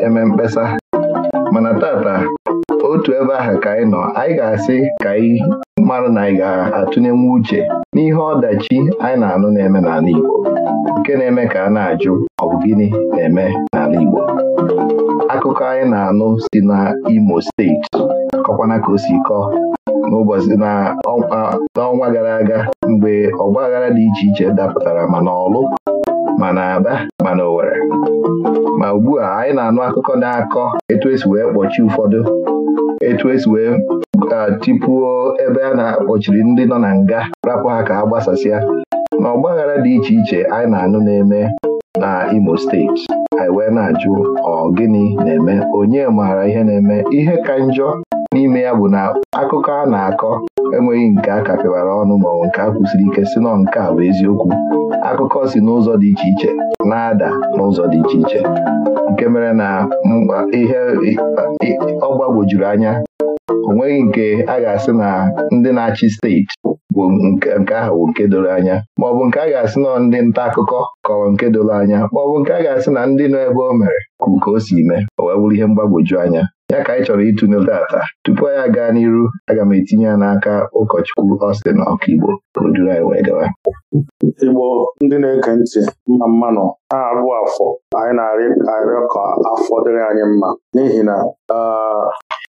eme mkpesa mana tata otu ebe ahụ ka anyị nọ anyị ga-asị ka anyị mara na anyị ga-atụnyenwu uche n'ihe ọdachi anyị na-anụ na-eme n'ala Igbo nke na-eme ka a na-ajụ ọ bụ gịnị na-eme n'ala Igbo akụkọ anyị na-anụ si na Imo steeti kọkwana ka o si kọọ gara aga mgbe ọgbaghara dị iche iche dapụtara mana ọlụ ma na Aba ma na Owere ma ugbu a anyị na-anụ akụkọ na-akọ etu esi wee kpọchie ụfọdụ etu esi wee tipuo ebe a na-akpọchiri ndị nọ na nga rapụ ha ka ha gbasasịa na ọgbaghara dị iche iche anyị na-anụ na-eme na Imo steeti anyị wee na-ajụ ọ gịnị na-eme onye maara ihe na-eme ihe ka njọ n'ime ya bụ na akụkọ a na-akọ enweghị nke a kapịwara ọnụ maọbụ nke a kwụsịrị ike si nọ nke a bụ eziokwu akụkọ si n'ụzọ dị iche iche na-ada n'ụzọ dị iche iche nke mere na ihe ọ gbagwojuru anya onweghị nke a ga-asị na ndị na-achị steeti bụ nke ahụ bụ nke doro anya maọbụ nke a ga-asị na ndị nta akụkọ kọrọ nke doro anya maọbụ nke a ga-asị na ndị nọ ebe o mere kụ ka o si mee o wee bụrụ ihe mgbagwoju anya ya ka anyị chọrọ ịtụnye tata tupu anyị aga n'iru aga m etinye ya n'aka ụkọchukwu Austin Igbo ka o duru anyị wee gawa Igbo ndị na-ege ntị mma mmanụ na-abụ afọ anyị na-arịọ arị ka afọ dịrị anyị mma n'ihi na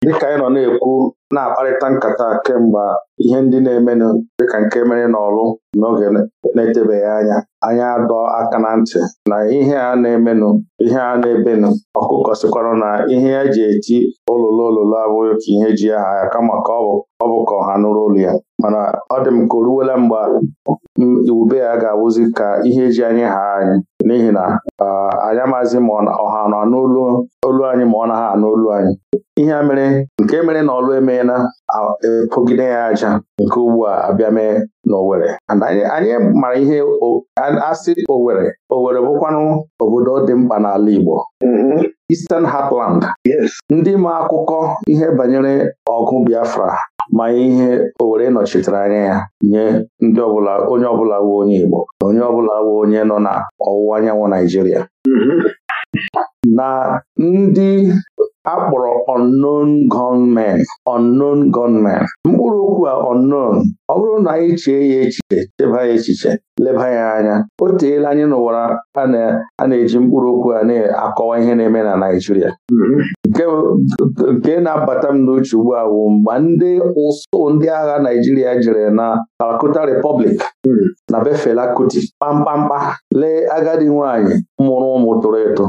dịka anyị nọ na-ekwu na-akparịta nkata kemgbe ihe ndị na-emenụ dịka nke mere n'ọrụ n'oge na-etebeghị anya anya adọ aka na ntị na ihe a na-emenụ ihe a na-ebenụ ọkụkọ sikwara na ihe e eji eti olulu olulu abụghị ka ihe ji aha ya kama ka ọ bụ ka ọha nụrụ olu ya mana ọ dị m ka o ruwela mgbe iwube ya ga awụzi ka ihe eji anyị ha anyị n'ihi na anyị amaghịzi ma ọha nọ n'olu olu anyị ma ọ naghị anụ olu anyị ihe mere nke mere na ọlụ eme na-epogide ya aja nke ugbu a abịa mee n'Owere anyị mara ihe asị Owere Owere bụkwanụ obodo dị mkpa n'ala Igbo mm-hmm. Eastern Heartland ndị ma akụkọ ihe banyere ọgụ Biafra ma ihe Owere nọchitere anya ya nye onye ọbụla onye Igbo onye ọbụla onye nọ na ọwụwa anyanwụ Naijiria mm-hmm. na ndị akpọrọ unknown gunmen unknown gunmen mkpụrụ okwu a unknown ọ bụrụ na anyị e chee ya echiche cheba ya echiche leba ya anya o teela anyị n'ụwa a na-eji mkpụrụ okwu a na-akọwa ihe na-eme na Naịjirịa nke na-abata m n'uche ugbu a mgbe ndị ụsụ ndị agha Naịjirịa jere na Kalkuta repọblik na befela Kuti kpamkpamkpa lee agadi nwaanyị mụrụ ụmụ tụrụ eto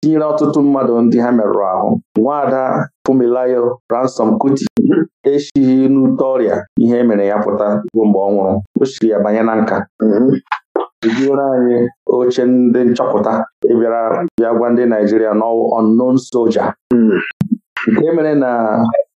tinyere ọtụtụ mmadụ ndị ha merụrụ ahụ nwaada Fumilayo Ransom Kuti mhm. eshighi n'ute ọrịa ihe mere ya pụta ruo mgbe ọ nwụrụ o siri ya banye na nka mhm. ejiwere anyị oche ndị nchọpụta ịbịara bịa gwa ndị Naijiria n'ọnụnụ soja mhm. nke mere na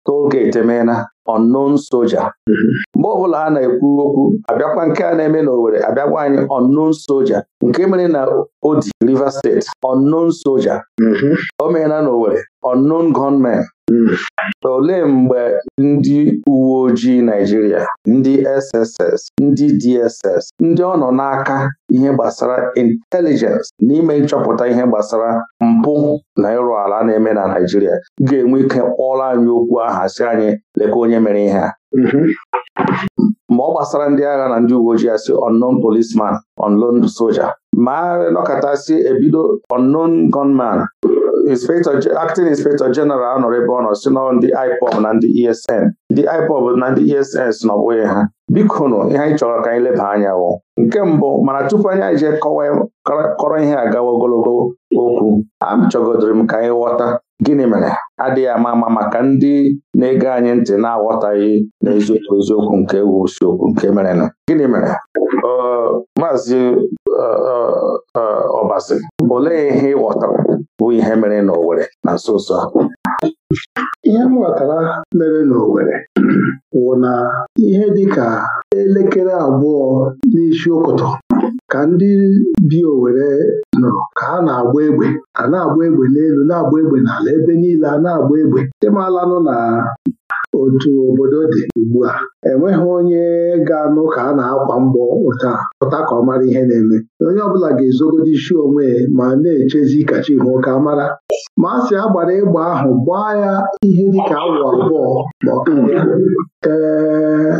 tolgeti emeela unknown soja mm-hmm. mgbe ọbụla a na-ekwu okwu abịakwa nke a na-eme na owere abịakwa anyị unknown soja nke mere na Odi Rivers Steeti unknown soja mm-hmm. o meela n'Owerri unknown gunman. Hmm. Olee mgbe ndị uwe ojii naijiria ndị SSS, ndị DSS, ndị ọ nọ n'aka ihe gbasara intelijens n'ime nchọpụta ihe gbasara mpụ na ịrụ ala na-eme na naijiria ga-enwe ike kpọrọ anyị okwu aha si anyị leka onye mere ihe a mm-hmm. ma ọ gbasara ndị agha na ndị uwe ojii asị unknown policeman unknown soja ma ebido unknown gunman acting inspector general nọrọ ebe ọ nọ si nọ ndị IPOB na ndị ESN ndị IPOB na ndị ESN e si n'ọbụghị ha biko nụ ihe anyị chọrọ ka anyị leba anya wụ nke mbụ mana tupu anyị eje kọrọ ihe agawa ogologo okwu chọgodiri m ka anyị ghọta gịnị mere adịghị ama ama maka ndị na-ege anyị ntị na-aghọtaghị n'eziokwu eziokwu nke wusiokwu nke mere gịnị mere maazị Ọbasi olee ihe ị ghọtara bụ ihe mere n'Owerri na nso nso a ihe m mere n'Owerri wụ na ihe dị ka elekere abụọ n'isi ụkụtụ ka ndị bi Owerri nụrụ ka ha na-agba egbe a na-agba egbe n'elu na-agba egbe n'ala ebe niile a na-agba egbe ịmalanụ na otu obodo dị ugbu a enweghị onye ga-anụ ka a na-akwa mbọ ụta pụta ka ọ mara ihe na-eme onye ọbụla ga ezogodo isi onwe ma na-echezi kachi hụ ka mara ma a sị a gbara ịgba ahụ gbaa ya ihe dịka awa abụọ ma ọ ee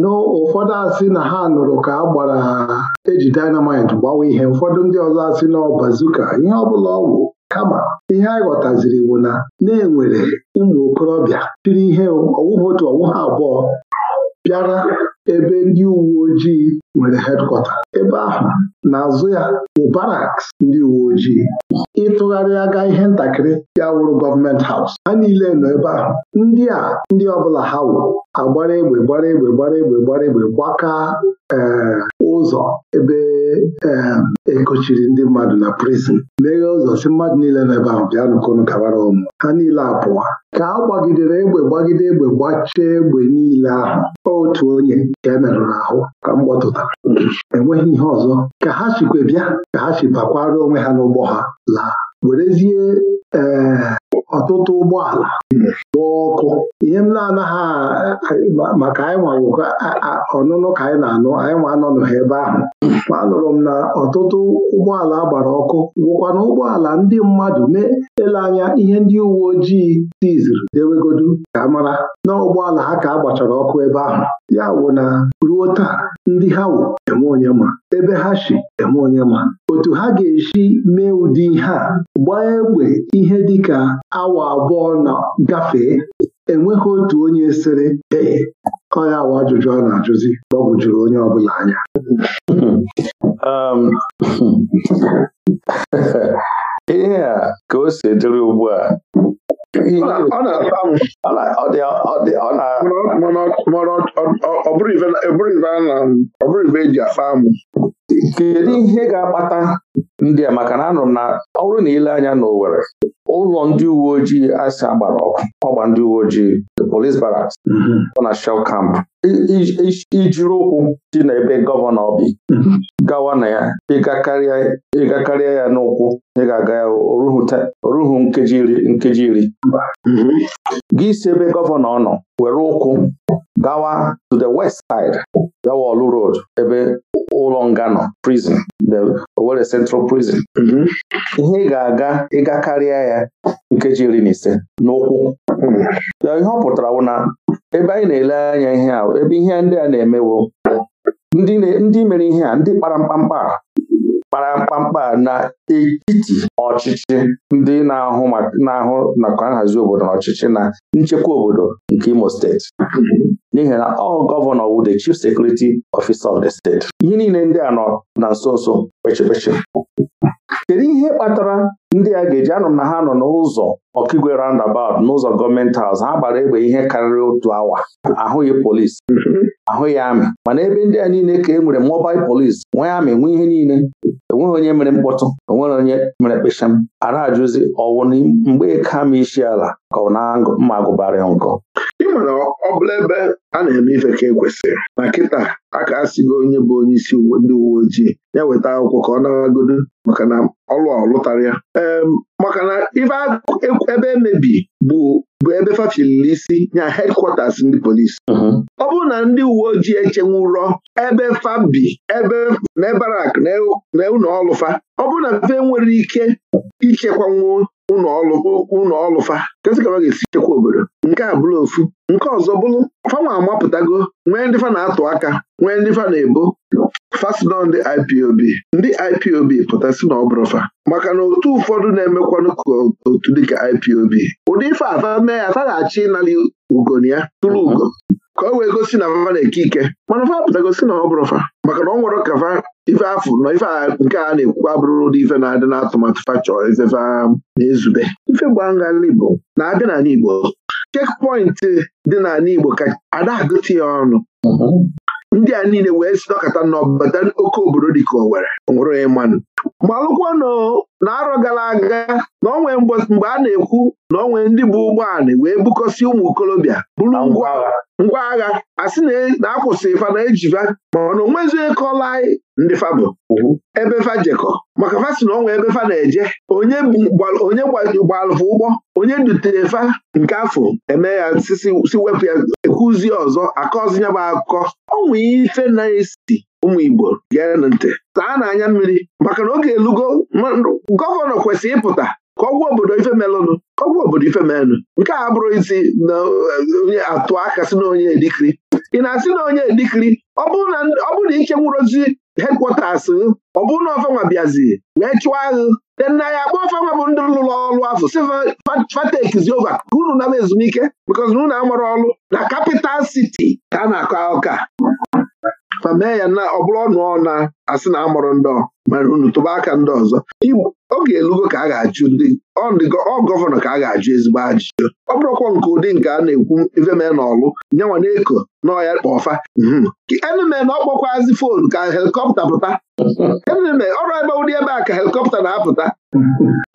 n'ụfọdụ asị na ha nụrụ ka a gbara eji dynamite gbawa ihe ụfọdụ ndị ọzọ asị na ọ bazuka ihe ọbụla ọgwụ. kama ihe anyị ghọtaziri bụ na na-enwere ụmụ okorobịa tiri ihe ọwụhụ otu ọwụhụ abụọ bịara ebe ndị uwe ojii nwere hedkọta ebe ahụ n'azụ ya bụ ndị uwe ojii ịtụgharịa aga ihe ntakịrị ya wụrụ gọọmenti haus ha niile nọ ebe ahụ ndị a ndị ọbụla ha wụ agbara egbe gbara egbe gbara egbe gbara egbe gbaka eh, ụzọ ebe ee eh, ekochiri ndị mmadụ na prizin meghee ụzọ si mmadụ niile nọ ebe ahụ bịa nụkọnụ gabara ụmụ ha niile apụwa ka a gbagidere egbe gbagide egbe gbachie egbe niile ahụ otu onye ka emerụrụ ahụ ka m gbọtụta enweghị ihe ọzọ ka ha sikwe bịa ka ha si bakwara onwe ha n'ụgbọ ha laa werezie ee eh, ọtụtụ ụgbọala lụọ ọkụ ihe m na-anaghị maka anyị nwawụkọ ọnụnụ ka anyị na-anụ anyị nwa ha ebe ahụ ma anụrụ m na ọtụtụ ụgbọala gbara ọkụ gwụkwana ụgbọala ndị mmadụ na-ele anya ihe ndị uwe ojii tiziri dewegodu ka mara na ụgbọala ha ka a gbachara ọkụ ebe ahụ ya wụ na ruo taa ndị ha wụ eme onye ma ebe ha si eme onye ma otu ha ga-esi mee ụdị ihe a gbaa egbe ihe dịka awa abụọ na gafee enweghị otu onye sịrị ee onye awa ajụjụ a na-ajụzi gbagwojuru juru onye ọbụla anya um, ihe a ka o si dịrị ugbu a ọ bụrụ ibe eji akpa amụ kedu ihe ga-akpata ndị a maka na anụrụ m na ọ bụrụ na ile anya n'Owerri ụlọ ndị uwe ojii asị agbara ọkụ ọgba ndị uwe ojii the police barracks mhm. ọ na shell camp ijiri ụkwụ dị n'ebe gọvanọ bi mhm. gawa na ya ịgakarịa ya n'ụkwụ ị ga-aga ya oruhu nkeji iri nkeji iri mhm. gị si ebe gọvanọ nọ were ụkwụ gawa to the west side olu Road ebe ụlọ nga prison the Owerri Central Prison mhm. ihe ị ga-aga ịga karịa ya nkeji iri na ise n'ụkwụ hmm. ya ihe ọ pụtara bụ na ebe anyị na-ele anya ihe a ebe ihe ndị a na-emewo ndị mere ihe a ndị kpara mkpamkpa kpara mkpamkpa na etiti ọchịchị ndị na-ahụ na-ahụ nakwa nhazi obodo na ọchịchị na nchekwa obodo nke Imo steeti n'ihi na ọ gọvanọ wu the chief security officer of the state ihe niile ndị a nọ na nso nso kpechikpechi kedu ihe kpatara ndị a ga-eji anụ m na ha nọ n'ụzọ ọkigwe roundabout n'ụzọ gọọmenti haus ha gbara egbe ihe karịrị otu awa ahụghị polisi mm-hmm. ahụghị amị mana ebe ndị a niile ka e nwere mobil polisi nwee amị nwee ihe niile enweghị onye mere mkpọtụ onwere e onye mere kpesham m arajụzi ọwụ mgbe e ka ma isi ala ka ọ na-mma agụbarị nkọ mana ọ bụla ebe a na-eme ife ka ekwesịrị na kịta a ka onye bụ onye isi ndị uwe ojii ya weta akwụkwọ ka ọ maka na ọlụ ọlụtara ya maka na ife ebe emebi bụ bụ ebe fafiliri isi nya ndị polisi uh-huh. ọ bụrụ na ndị uwe ojii echenwurọ ebe fabi ebe na na ụlọ ọlụfa ọ bụrụ na fe nwere ike ichekwanwu ụlọ ọlụfa kasị ga-esi chekwa obodo nke a bụrụ ofu nke ọzọ bụrụ fanwa amapụtago nwee ndị fa na-atụ aka nwee ndị fa na-ebo fasino ndị IPOB ndị IPOB pụtasị na ọ bụrụ fa maka na otu ụfọdụ na-emekwanụ ka otu dịka IPOB ụdị ife afa mee ya ataghachi ịnara ugoni ya tụrụ ugo ka o wee gosi na fa na-eke ike mana fa si na ọ bụrụ fa maka na ọ nwere ka fa ife afụ nọ ife a nke a na ekwu abụrụ ụdị ife na-adị n'atụmatụ fachọ ifefe na-ezube ife gbangharị Igbo na-abịa n'ala Igbo chekpọịntị dị n'ala Igbo ka ada agụtị ya ọnụ ndị a niile wee si nọkọta n'ọbata oke obodo dịka Owerri nwụrụ mmanụ. gbalụkwa na arọ gara aga na onwe mgbe a na-ekwu na onwe ndị bụ ụgbọala wee bukọsi ụmụ okorobịa bụrụ ngwa ngwa agha asị na e, akwụsị fa na ejiva mana onwezi kọla anyị ndị fabụ ebe fajekọ maka fasi si na ọnwa ebe fa na-eje onye gbalụfụ ụgbọ onye dutere fa nke afọ eme ya si wepụ ya ekwuzie ọzọ akọzi ya bụ akụkọ ọnwa ife na-esi ụmụ Igbo gee ntị taa n'anya mmiri maka na oge elugo gọvanọ kwesịrị ịpụta kọgwụ obodo ife melụnụ obodo ife melụnụ nke a bụrụ isi na eh, onye atụ aka si na onye edikiri ị na-asị na onye edikiri ọ bụrụ na ike nwụrozi hedkwọtas ọ bụrụ na ọfanwa bịazi wee chụọ ahụ de na ya agba ọfanwa bụ ndị lụrụ ọrụ afọ sifatekizi oge ka unu na ezumike bikọz na unu amara ọrụ na kapital siti ka a na-akọ ụka ma mee ya na ọ bụrụ ọnụ ọna asị na amụrụ ndị mana unu tụba aka ndị ọzọ oge elugo ka a ga-ajụ ndị ọ gọvanọ ka a ga-ajụ ezigbo ajụjụ ọ bụrụkwa nke ụdị nke a na-ekwu iveme hmm. na ọlụ nyanwa na-eko n'ọya kpọfa eneme na ọkpọkwazi foonu ka helikọpta pụta eneme ọrụ ebe ụdị ebe a ka helikọpta na-apụta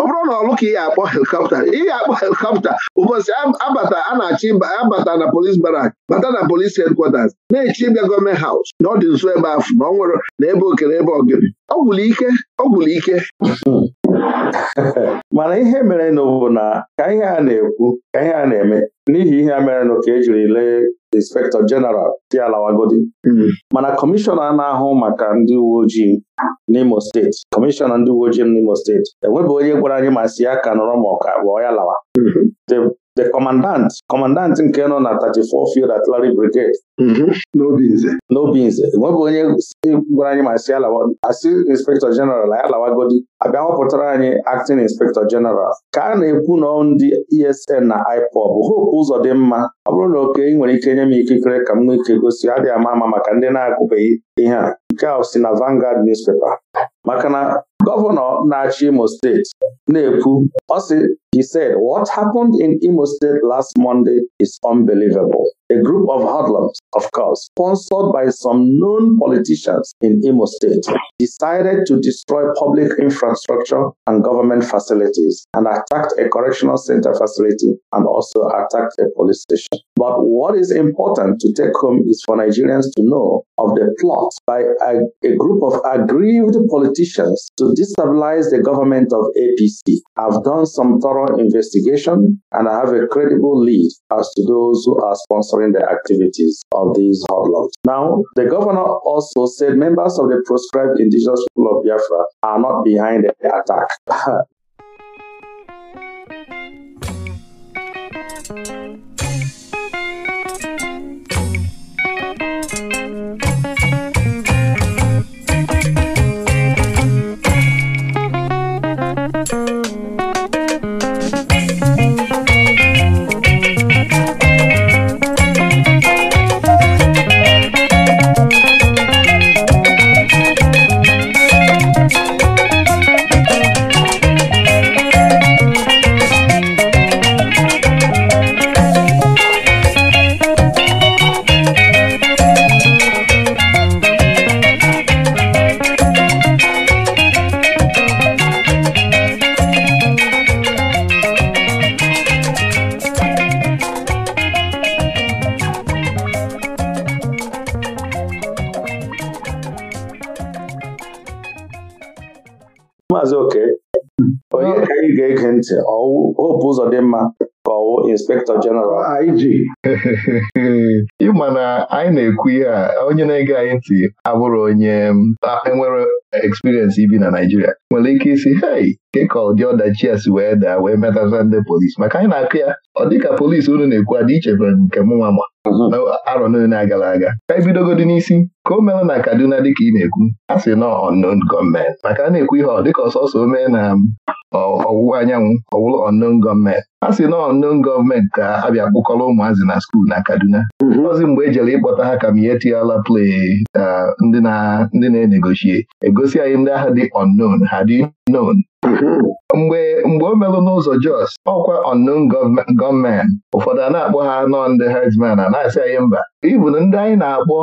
ọ bụrụ na ọlụ ka ị ga-akpọ helikọpta ị ga-akpọ helikọpta ụbọchị abata a na-achọ abata na polis barak bata na polis hedkwatas na-echi ịbịa gọọmenti haus na ọ dị nso ebe afụ na ọ nwere na ebe oke okere ebe ogiri ọ gwụrụ ike ọ gwụrụ ike mana ihe mere bụ na ka ihe a na-ekwu ka ihe a na-eme n'ihi ihe a mere nụ ka ejiri lee inspektọ jeneral alawagodi hmm. mana kọmishọna na-ahụ maka ndị uwe ojii n'Imo steeti kọmishọna ndị uwe ojii n'Imo steeti enwebeghị onye gwara anyị ma si ya ka nọrọ ma ọka ọya the commandant commandant nke nọ na 34 field artillery brigade mhm. n'obinze n'obinze enweghị onye e gwara anyị ma si asị inspector general anyị alawagodi abịa họpụtara anyị acting inspector general ka a na-ekwu na ndị esn na ipob hope ụzọ dị mma ọ bụrụ na oke ị nwere ike nye m ikikere ka m nwee gosi adịghị ama ama maka ndị na-agụbeghị ihe a nke a na Vanguard newspaper maka na gọvanọ na Imo steeti na-ekwu ọ he said what happened in Imo State last Monday is unbelievable a group of hoodlums of course sponsored by some known politicians in Imo State decided to destroy public infrastructure and government facilities and attacked a correctional center facility and also attacked a police station but what is important to take home is for Nigerians to know of the plot force by a, a group of aggrieved politicians to destabilize the government of APC. have done some thorough investigation and I have a credible lead as to those who are sponsoring the activities of these hoodlums. Now, the governor also said members of the proscribed indigenous people of Biafra are not behind the attack. Maazị Oke hmm. onye ka anyị ga-ege ntị ọwụ dị mma ka ọwụ Inspektọ Jeneral ah, IG ịma na anyị na-ekwu ihe a onye na-ege anyị ntị abụrụ onye enwere experience ibi na Naijiria nwere ike isi hei nke ka ụdị ọdachi ya si wee daa wee metata ndị polisi maka anyị na-akụ ya ọ dị ka polisi unu na-ekwu adị ichebere nke m nwa ma mhm. arọ niile agara aga ka anyị bidogodi n'isi ka o mere na Kaduna dịka ị na-ekwu a sị na unknown gọọmenti maka a na-ekwu ihe ọ dịka ọsọsọ o mee na ọwụwa anyanwụ ọwụrụ unknown gọọmenti a sị na unknown gọọmenti ka abịa kpụkọrọ ụmụazị na skuul na Kaduna ọzi mhm. mgbe e jere ịkpọta ha ka m ihe tiala play uh, ndị na-enegoshie ego na-egosi anyị ndị agha dị unknown ha dị known Mm-hmm. mgbe mgbe o merụ n'ụzọ Jos ọkwa unknown gọọmenti ụfọdụ a na-akpọ ha nọ ndị herdsmen a na-asị anyị mba ibu na ndị anyị na-akpọ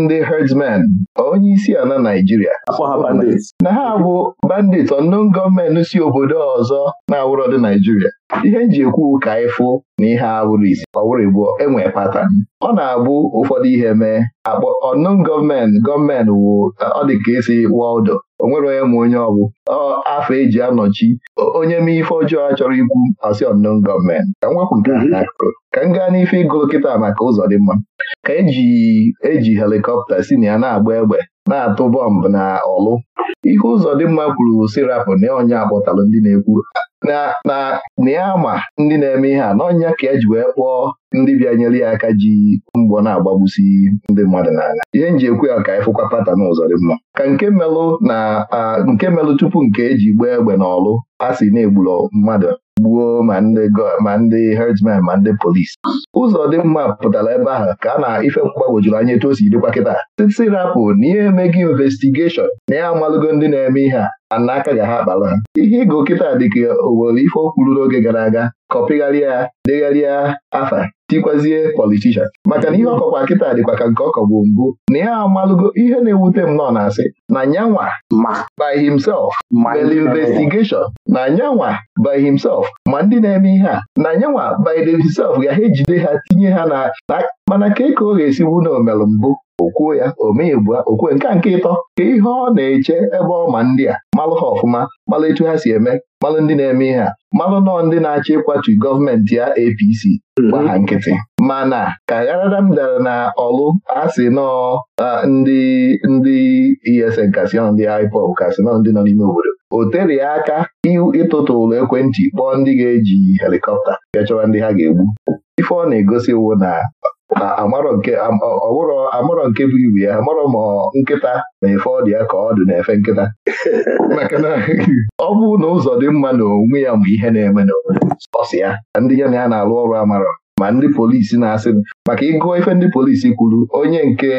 ndị herdsmen onye isi Naijiria na ha bụ bandit unknown gọọmenti si obodo ọzọ na-awụrọ dị Naijiria ihe nji ekwu ka ịfụ na ihe awụrụ isi ọwụrụ igbo enwe pata. ọ na-abụ ụfọdụ ihe mee akpọ onon gọọmenti gọọmenti wụ ọ dị ka esi wọldụ o nwere onye ma onye ọbụ afọ eji anọchi onye mee ife ọjọọ a chọrọ ikwu asị ọnụ gọọmenti ka m nke mhm. ka m gaa n'ife ịgụ kịta maka ụzọ dị mma ka eji e helikọpta si na ya na-agba egbe na-atụ bọmbụ na ọlụ ihe ụzọ dị mma kwuru sirapụ na onye akpọtalụ ndị na-ekwu na ya ma ndị na-eme ihe a n'ọnya ka e ji wee kpọọ ndị bịanyere ya aka ji mgbọ na-agbagbusi ndị mmadụ n'ala ihe nji ekwu ya ka ịfụkwa pata na ụzọ dị mma ka nke melụ na nke melụ tupu nke eji gbaa egbe n'ọlụ a sị na-egburu mmadụ gbuo ma ndị ma ndị herdsmen ma ndị polisi ụzọ dị mma pụtara ebe ahụ ka a na ife mgbagwojuru anya etu o si dịkwa kịta titi rapụ na ihe emeghị investigeshon na ya amalụgo ndị na-eme ihe a n'aka ga ha akpala ihe ịgụ kịta dịka owere ife o kwuru n'oge gara aga kọpịgharịa degharịa afa tikwazie politishan maka na ihe ọkọkwa kịta dịkwa ka nke ọkọ bụ mbụ na a amalụgo ihe na-ewute m nọ na-asị na nyanwa by himself mere investigeshọn na nyanwa by himself ma ndị na-eme ihe a na nyanwa by themselves ga ha ejide ha tinye ha na mana ka e ka ọ ga-esiwu na omelu mbụ okwuo ya omee bu okwue nke a nke ịtọ ka ihe ọ na-eche ebe ọ ma ndị a malụ ha ọfụma malụ etu ha si eme malụ ndị na-eme ihe a malụ nọọ ndị na-achọ ịkwatu gọọmenti ya APC gba ha nkịtị mana ka gharadam dara na ọlụ asị e nọọ ndị ndị ESN kasị dị ndị IPOB kasị nọ ndị nọ n'ime obodo o tere ya aka ịtụtụ ụlọ ekwentị kpọọ ndị ga-eji helikọpta bịa chọwa ndị ha ga-egbu ife ọ na-egosi wụ na na nke bụ ibu ya amarọ ma nkịta na-efe ọdị ya ka ọ dị na-efe nkịta maka na ọ bụrụ na ụzọ dị mma na onwe ya mgbe ihe na-eme n'obodo ọsị ya ndị ya na ya na-alụ ọrụ amarọ ma ndị polisi na-asị maka ịgụọ ife ndị polisi kwuru onye nke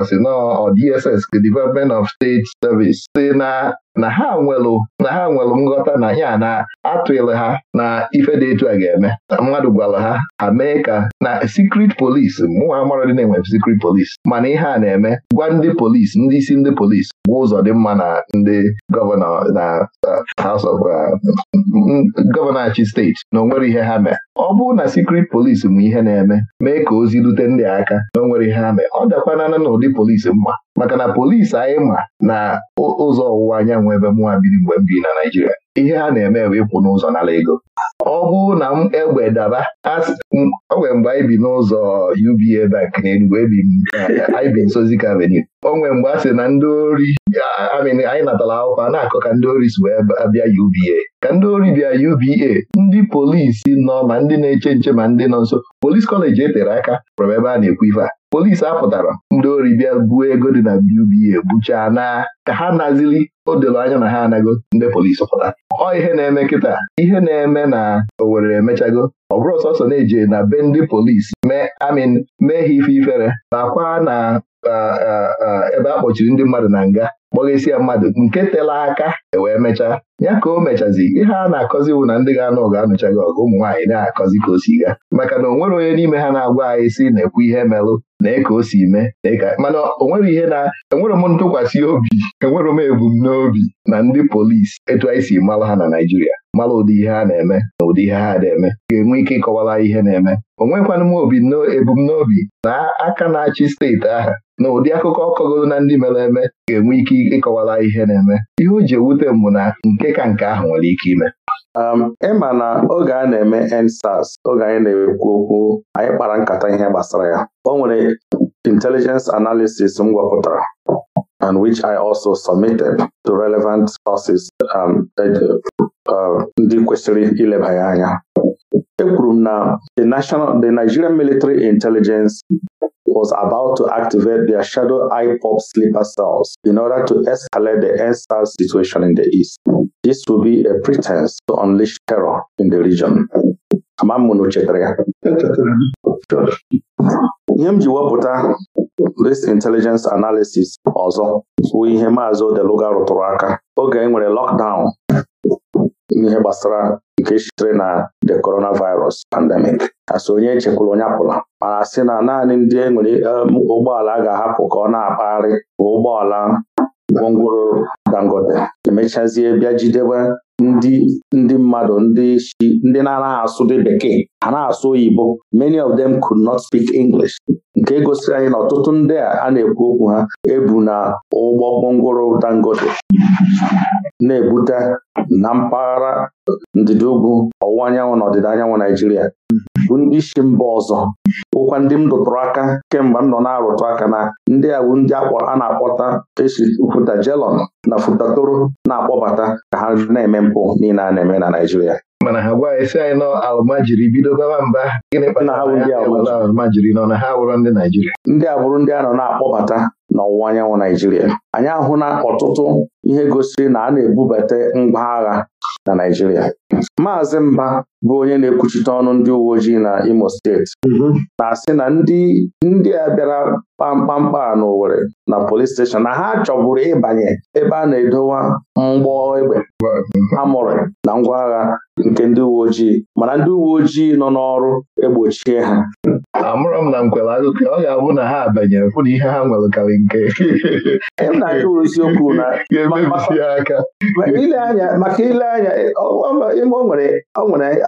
ọsịnọ DSS Development of State Service si na ha nwelụ na ha nghọta na ya na atụlụ ha na ife dị etu a ga-eme mmadụ gwara ha ha mee ka na secret police mụnwa mara dị na-enwe secret police mana ihe a na-eme gwa ndị polis ndị isi ndị polis gwa ụzọ dị mma na ndị gọvanọ na uh, House of uh, mm, gọvanọ achị steeti na onwere ihe ha mee ọ bụrụ na secret polis mụ ihe na-eme mee ka ozi rute ndị aka na o ihe ha mee ọ dakwanana na ụdị polisi mma maka na polisi anyị ma na ụzọ ọwụwa anyanwụ ebe mụnwa biri mgbe m biri na Naijiria ihe ha na-eme bụ ịkwụ n'ụzọ n'ala ego ọ bụrụ na m egbe daba o nwere mgbe anyị bi n'ụzọ UBA bank na Enugu anyị bi nso Avenue o nwere mgbe a sị na ndị ori anyị natara akwụkwọ a na-akọ ka ndị ori si wee bịa UBA ka ndị ori bịa UBA ndị polisi nọ ma ndị na-eche nche ma ndị nọ nso polisi kọleji etere aka kpọrọ ebe a na-ekwu ife a polisi apụtara ndị ori bịa buo ego dị na BBA buchaa na ka ha nazili o doro anya na ha anago ndị polisi pụta ọ ihe na-eme nkịta ihe na-eme na Owerri emechago ọ bụrụ sọsọ na-eje na be ndị polisi mee amin mee ha ife ifere nakwa na ebe a kpọchiri ndị mmadụ na nga kpọghesi ya mmadụ nke tela aka ewee mechaa ya ka o mechazi ihe a na-akọzi bụ na ndị ga-anụ anụcha gị ọgụ ụmụ na-akọzi ka o si ga maka na o nwere onye n'ime ha na-agwa anyị si na-ekwu ihe melụ na e ka o si mee e mana onwere ihe na enwere m ntụkwasị obi enwere m ebumnobi na ndị polisi etu anyị si malụ ha na Naịjirịa mara ụdị ihe a na-eme na ụdị ihe ha na-eme ga-enwe ike ịkọwara ihe na-eme o nwekwana m obi ebumnobi na aka na-achị steeti ahụ na ụdị akụkọ ọkọgoro na ndị mere eme ga-enwe ike ịkọwara ihe na-eme ihe o ji ewute m na nke ka nke ahụ nwere ike ime um, ịma na oge a na-eme EndSARS oge anyị na-ekwu okwu anyị kpara nkata ihe gbasara ya o nwere intelijens analisis m gwapụtara and which I also submitted to relevant sources um, uh, ndị kwesịrị ileba ya anya ekwuru m na the national the Nigerian military intelligence was about to activate their shadow IPOP sleeper cells in order to escalate the NSAS situation in the east. This will be a pretense to unleash terror in the region. Ama na ya ihe m ji wepụta risk intelligence analysis ọzọ bụ ihe maazị Odeluga rụtụrụ aka oge e nwere lockdown n'ihe gbasara nke sitere na the coronavirus pandemic asị onye echekwara onye apụla mana sị na naanị ndị enwere um, ụgbọala a ga-ahapụ ka ọ na-akpagharị bụ ụgbọala gwongworo Dangote emechazie bịa jidebe ndị ndị mmadụ ndị ndị na-anaghị asụ dị bekee ha na-asụ oyibo many of them could not speak English nke gosiri anyị na ọtụtụ ndị a na-ekwu okwu ha ebu na ụgbọ gwongworo Dangote na-ebute na mpaghara ndịda ugwu ọwụwa anyanwụ na ọdịda anyanwụ Naijiria bụ ndị isi mba ọzọ Ụkwa ndị m dụtụrụ aka kemgbe m nọ na-arụtụ aka na ndị awụ ndị a na-akpọta esi futa jelọn na futatoro na-akpọbata ka ha na-eme mpụ niile a na-eme na Naijiria. mana ha gwa esi anyị nọ jiri bido baba mba gịnị kpatara alụmajiri nọ na ha wụrụ ndị Naịjirịa ndị abụrụ ndị a nọ na-akpọbata n'ọwụwa anyanwụ Naịjirịa anyị ahụ na ọtụtụ ihe gosiri na a na-ebubata ngwa agha na Naịjirịa Maazị Mba bụ onye na-ekwuchite ọnụ ndị uwe ojii na Imo steeti mhm. na-asị na ndị ndị a bịara kpamkpamkpa a na polis steshọn na ha chọburu ịbanye ebe a na-edowa mgbọ egbe mụrụ na ngwa agha nke ndị uwe ojii mana ndị uwe ojii nọ n'ọrụ egbochie ha amụrụ m na nkwere akụkọ ọ ga-abụ na ha ihe ha nke ile anya maka ile anya ebe o nwere nwere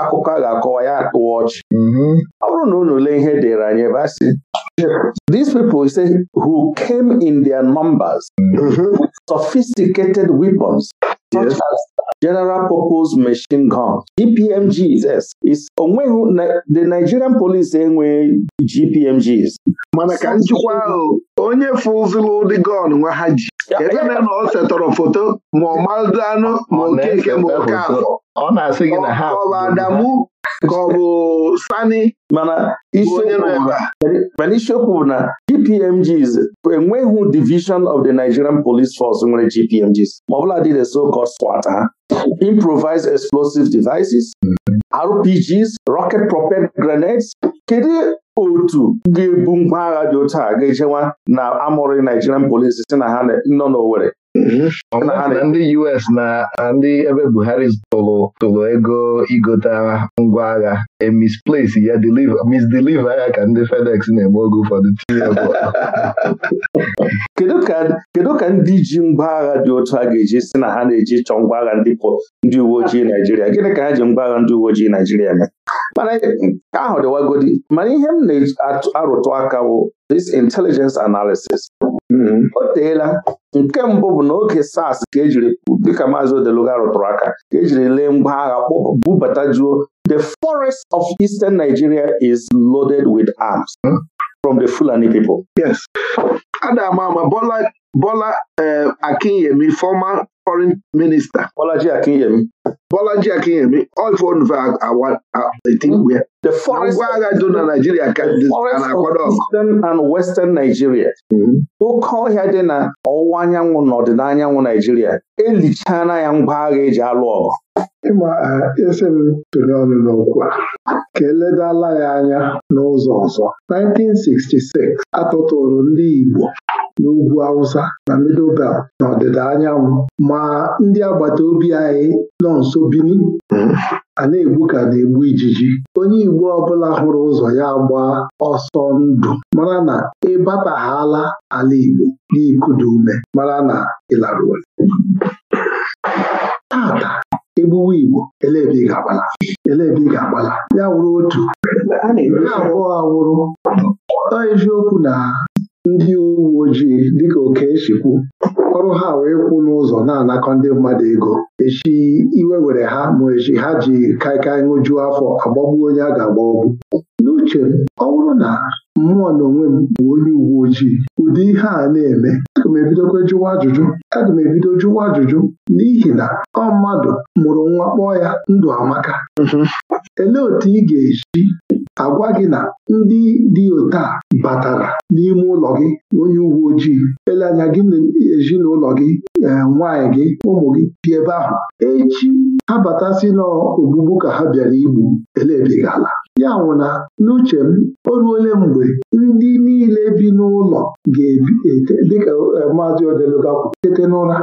akụkọ a ga-akọwa ya tụọ ọchị mm-hmm. ọ bụrụ na unu lee ihe dịrị anyị ebe a sị these people say who came in their numbers mm-hmm. with sophisticated weapons General Purpose Machine Gun GPMGs is onweghị the Nigerian Police enweghị GPMGs mana ka njikwa ahụ onye fụzụlụ ụdị gọn nwa ha ji ebe na ọ setọrọ foto ma ọ madụ anụ ma okeke ma oke afọ ọ na-asị gị na ha bụ Adamu ka ọ bụ Sani mana isiokwu bụ na GPMGs enweghị division of the Nigerian Police Force nwere GPMGs ma ọ bụla dị the so-called SWAT ha improvised explosive devices RPGs rocket propelled grenades kedu otu ga-ebu ngwa agha dị otu a ga-ejewa na amụrụ Nigerian Police si na ha nọ n'Owerri na ndị US na ndị ebe Buhari tụrụ tụrụ ego igote ngwa agha emisplace ya misdeliver ya ka ndị FedEx na-eme oge ụfọdụ tinye kedu ka ndị ji ngwa agha dị otu a ga-eji si na ha na-eji chọọ ngwa agha ndị uwe ojii Naijiria gịnị ka ha ji ngwa agha ndị uwe ojii Naijiria mee mana nke ahụ dịwagodi mana ihe m na-arụtụ aka bụ this intelligence analysis hmm. o teela nke mbụ bụ n'oge SARS ka ejiri dịka maazị Odeluga rụtụrụ aka ka ejiri lee ngwa agha bubata juo the forest of eastern Nigeria is loaded with arms hmm. from the Fulani people. Yes. Ama Bola Bola eh, Akinyemi former foreign minister Bolaji Akinyemi Bolaji Akinyemi oifnve agwa-etigbu ya ngwa agha dị na Naijiria ka na-akwado ọgụ Eastern and Western Nigeria oke ọhịa dị na ọwụwa anyanwụ na ọdịda anyanwụ Naijiria elichana ya ngwa agha eji alụ ọgụ ịma esi m tụnye ọnụ n'okwu a ka eledala ya anya n'ụzọ ọzọ 1966 atụtụrụ ndị Igbo n'ugwu Awụsa na Middle na ọdịda anyanwụ ma ndị agbata obi anyị nọ nso Bini hmm. a na-egbu ka na-egbu ijiji onye Igbo ọbụla hụrụ ụzọ ya gbaa ọsọ ndụ mara na ịbataghala ala Igbo n'ikudu ume mara na ịlarụ tata egbuwe Igbo elebi ga-agbala ya wụrụ otu ya abụọ awụrụ eziokwu na ndị uwe ojii dịka Okechi kwu ọrụ ha wee kwụ n'ụzọ na-anakọ ndị mmadụ ego echi iwe were ha ma echi ha ji kaịkaị ṅụjuo afọ agbagbuo onye a ga-agbagbu n'uche ọ bụrụ na mmụọ na onwe m bụ onye uwe ojii ụdị ihe a na-eme aga m ebidokwa jụwa ajụjụ aga m ebido jụwa ajụjụ n'ihi na ọ mmadụ mụrụ nwa kpọọ ya ndụ amaka mhm. elee otu ị ga-eji agwa gị na ndị dị otu a batara n'ime ụlọ gị onye uwe ojii ele anya gị na ezinụlọ gị e, nwaanyị gị ụmụ gị dị ebe ahụ echi ha batasị n'ogbugbu ka ha bịara igbu elebighị ala ya nwụ na n'uche m o ruole mgbe ndị niile bi n'ụlọ ga-ebi dịka e, maazị odeluga kwụ tete n'ụra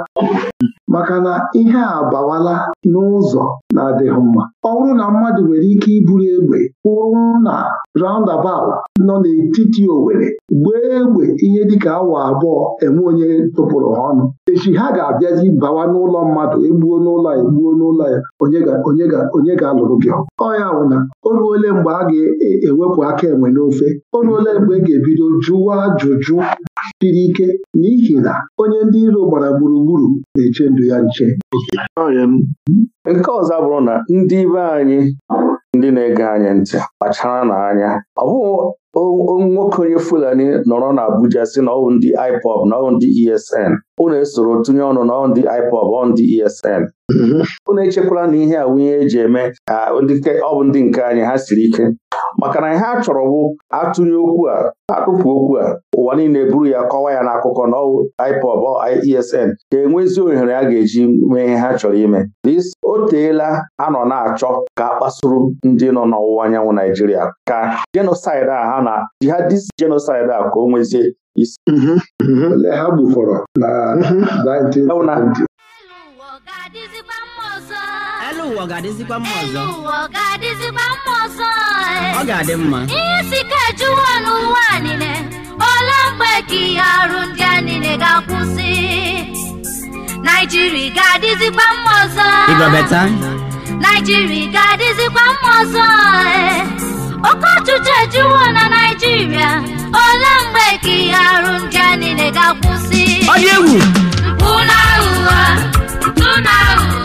maka na ihe a bawala n'ụzọ na-adịghị mma ọ bụrụ na mmadụ nwere ike iburu egbe kwụrụ na roundabout nọ n'etiti Owere, gbee egbe ihe dịka awa abụọ enwe onye tụpụrụ ha ọnụ echi ha ga-abịazi bawa n'ụlọ mmadụ egbuo n'ụlọ ya egbuo n'ụlọ ya onye ga-alụrụ gị ọya wụna o ruole mgbe a ga-ewepụ aka enwe n'ofe o mgbe e ga-ebido jụwa ajụjụ siri ike n'ihi na onye ndị iro gbara gburugburu na-eche ndụ ya nche nke ọzọ bụrụ na ndị be anyị ndị na-ege anyị ntị kpachara n'anya ọ bụghị nwoke onye Fulani nọrọ na Abuja si na ọwụ ndị IPOB e na ọwụ ndị ESN unu esoro tụnye ọnụ na ọwụ ndị IPOB ọwụ ndị ESN unu mhm. echekwala na ihe a wunye eji eme ka ọ bụ ndị nke anyị ha siri ike maka na ha chọrọ wụ atụnye okwu a atụpụ okwu a ụwa niile buru ya kọwa ya n'akụkọ na IPOB ESN ga-enwe ezi ohere a ga-eji mee ha chọrọ ime o teela a nọ na-achọ ka a ndị nọ n'ọwụwa anyanwụ Naijiria ka jenosaid a ha na jihadist jenosaid a ka o nwezie isi mhm, mhm. ha gbufọrọ na 1970 Elu ụwa ga-adịzikwa mma ọzọ ọ ga-adị mma ihe si ka ejuwa n'ụwa niile ole mgbe ka ihe arụ ndị a niile ga-akwụsị naijiria ga-adịzikwa mma ọzọ naijiria ga-adịzikwa mma ọzọ eh. oke ọchịchị ejuwo na naijiria ole mgbe ka ihe arụ ndị a niile ga-akwụsị ọ dị egwu mpụ na aghụghọ mpụ na aghụghọ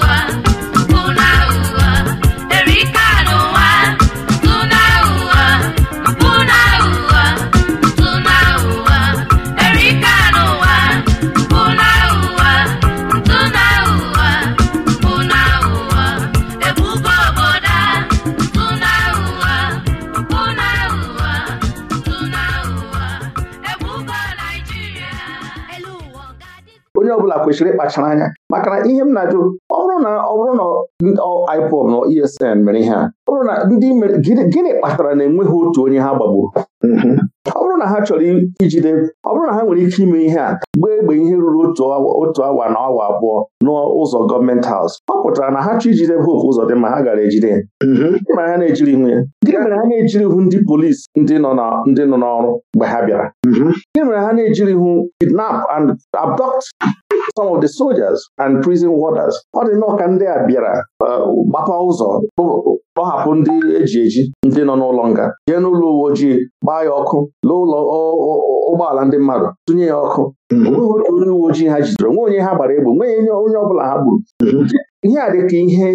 ọbụla kwesịrị ịkpachara anya maka na ihe m na-ajụ ọ bụrụ na ọ bụrụ na IPOB na ESN mere ihe a ọ bụrụ na ndị mere gịnị kpatara na enweghị otu onye ha gbagburu mm-hmm. ọ bụrụ na ha chọrọ ijide ọ bụrụ na ha nwere ike ime ihe a gbaa egbe ihe ruru otu awa na awa abụọ n'ụzọ gọọmenti haus ọ pụtara na ha chọ ijide Hope Uzodimma ha gara ejide ma mm-hmm. ha na-ejiri hụ ya gịnị mere ha na-ejiri hụ ndị polisi ndị nọ n'ọrụ mgbe ha bịara mm-hmm. gịnị mere ha na-ejiri ihu kidnap and abduct some of the soldiers and prison warders ọ dị nnọọ ka ndị a bịara uh, gbapa ụzọ kpọhapụ ndị eji eji ndị nọ n'ụlọ nga jee n'ụlọ uwe ojii gbaa ya ọkụ n'ụlọ ụgbọala ndị mmadụ tụnye ya ọkụ hmm. onye uwe ojii ha jidere nwe onye ha gbara egbe nwe onye ọ bụla ha gburu hmm. ihe a dịka ihe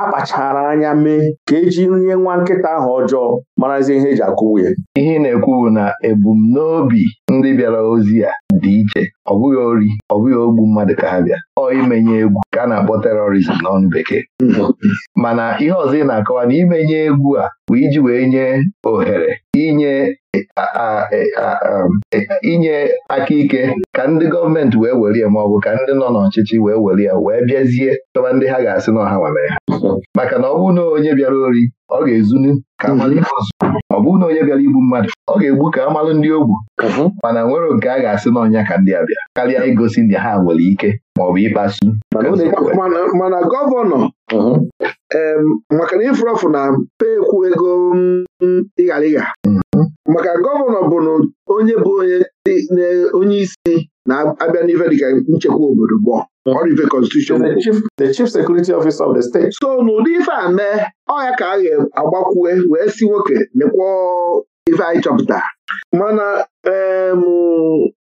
akpachara anya mee ka eji nye nwa nkịta ahụ ọjọọ marazie ihe eji akụwu ya ihe na-ekwu bụ na ebumnobi ndị bịara ozi ya dị iche ọ bụghị ori ọ bụghị ogbu mmadụ ka ha bịa ọ imenye egwu ka a na-akpọ terọrizm n'ọnụ bekee mana ihe ọzọ ị na-akọwa na imenye egwu a bụ iji wee nye ohere inye um, inye aka ike ka ndị gọọmenti wee welie ya ma ọ bụ ka ndị nọ n'ọchịchị wee were wee bịazie chọba ndị ha ga-asị na ọha nwemere ha maka na ọ bụ na onye bịara ori ọ ga-ezunu ka amalụ mhm. ọzọ ọ bụghị na onye bịara igbu mmadụ ọ ga-egbu ka amalụ ndị ogbu mhm. mana nwere nke a ga-asị n'ọnya ka ndị a bịa karịa igosi ndị ha nwere ike ma ọ bụ ịkpasu mana gọvanọ mhm. maka na ịfụrụ ọfụ na pekwu ego mm, ịghara ịgha maka gọvanọ bụ na onye bụ onye onye isi na-abịa n'ife dịka nchekwa obodo bụ ọrive constitution the chief security officer of the state. so n'ụdị ife a mee ọya ka a ga-agbakwue wee si nwoke mekwa ife anyị chọpụtara mana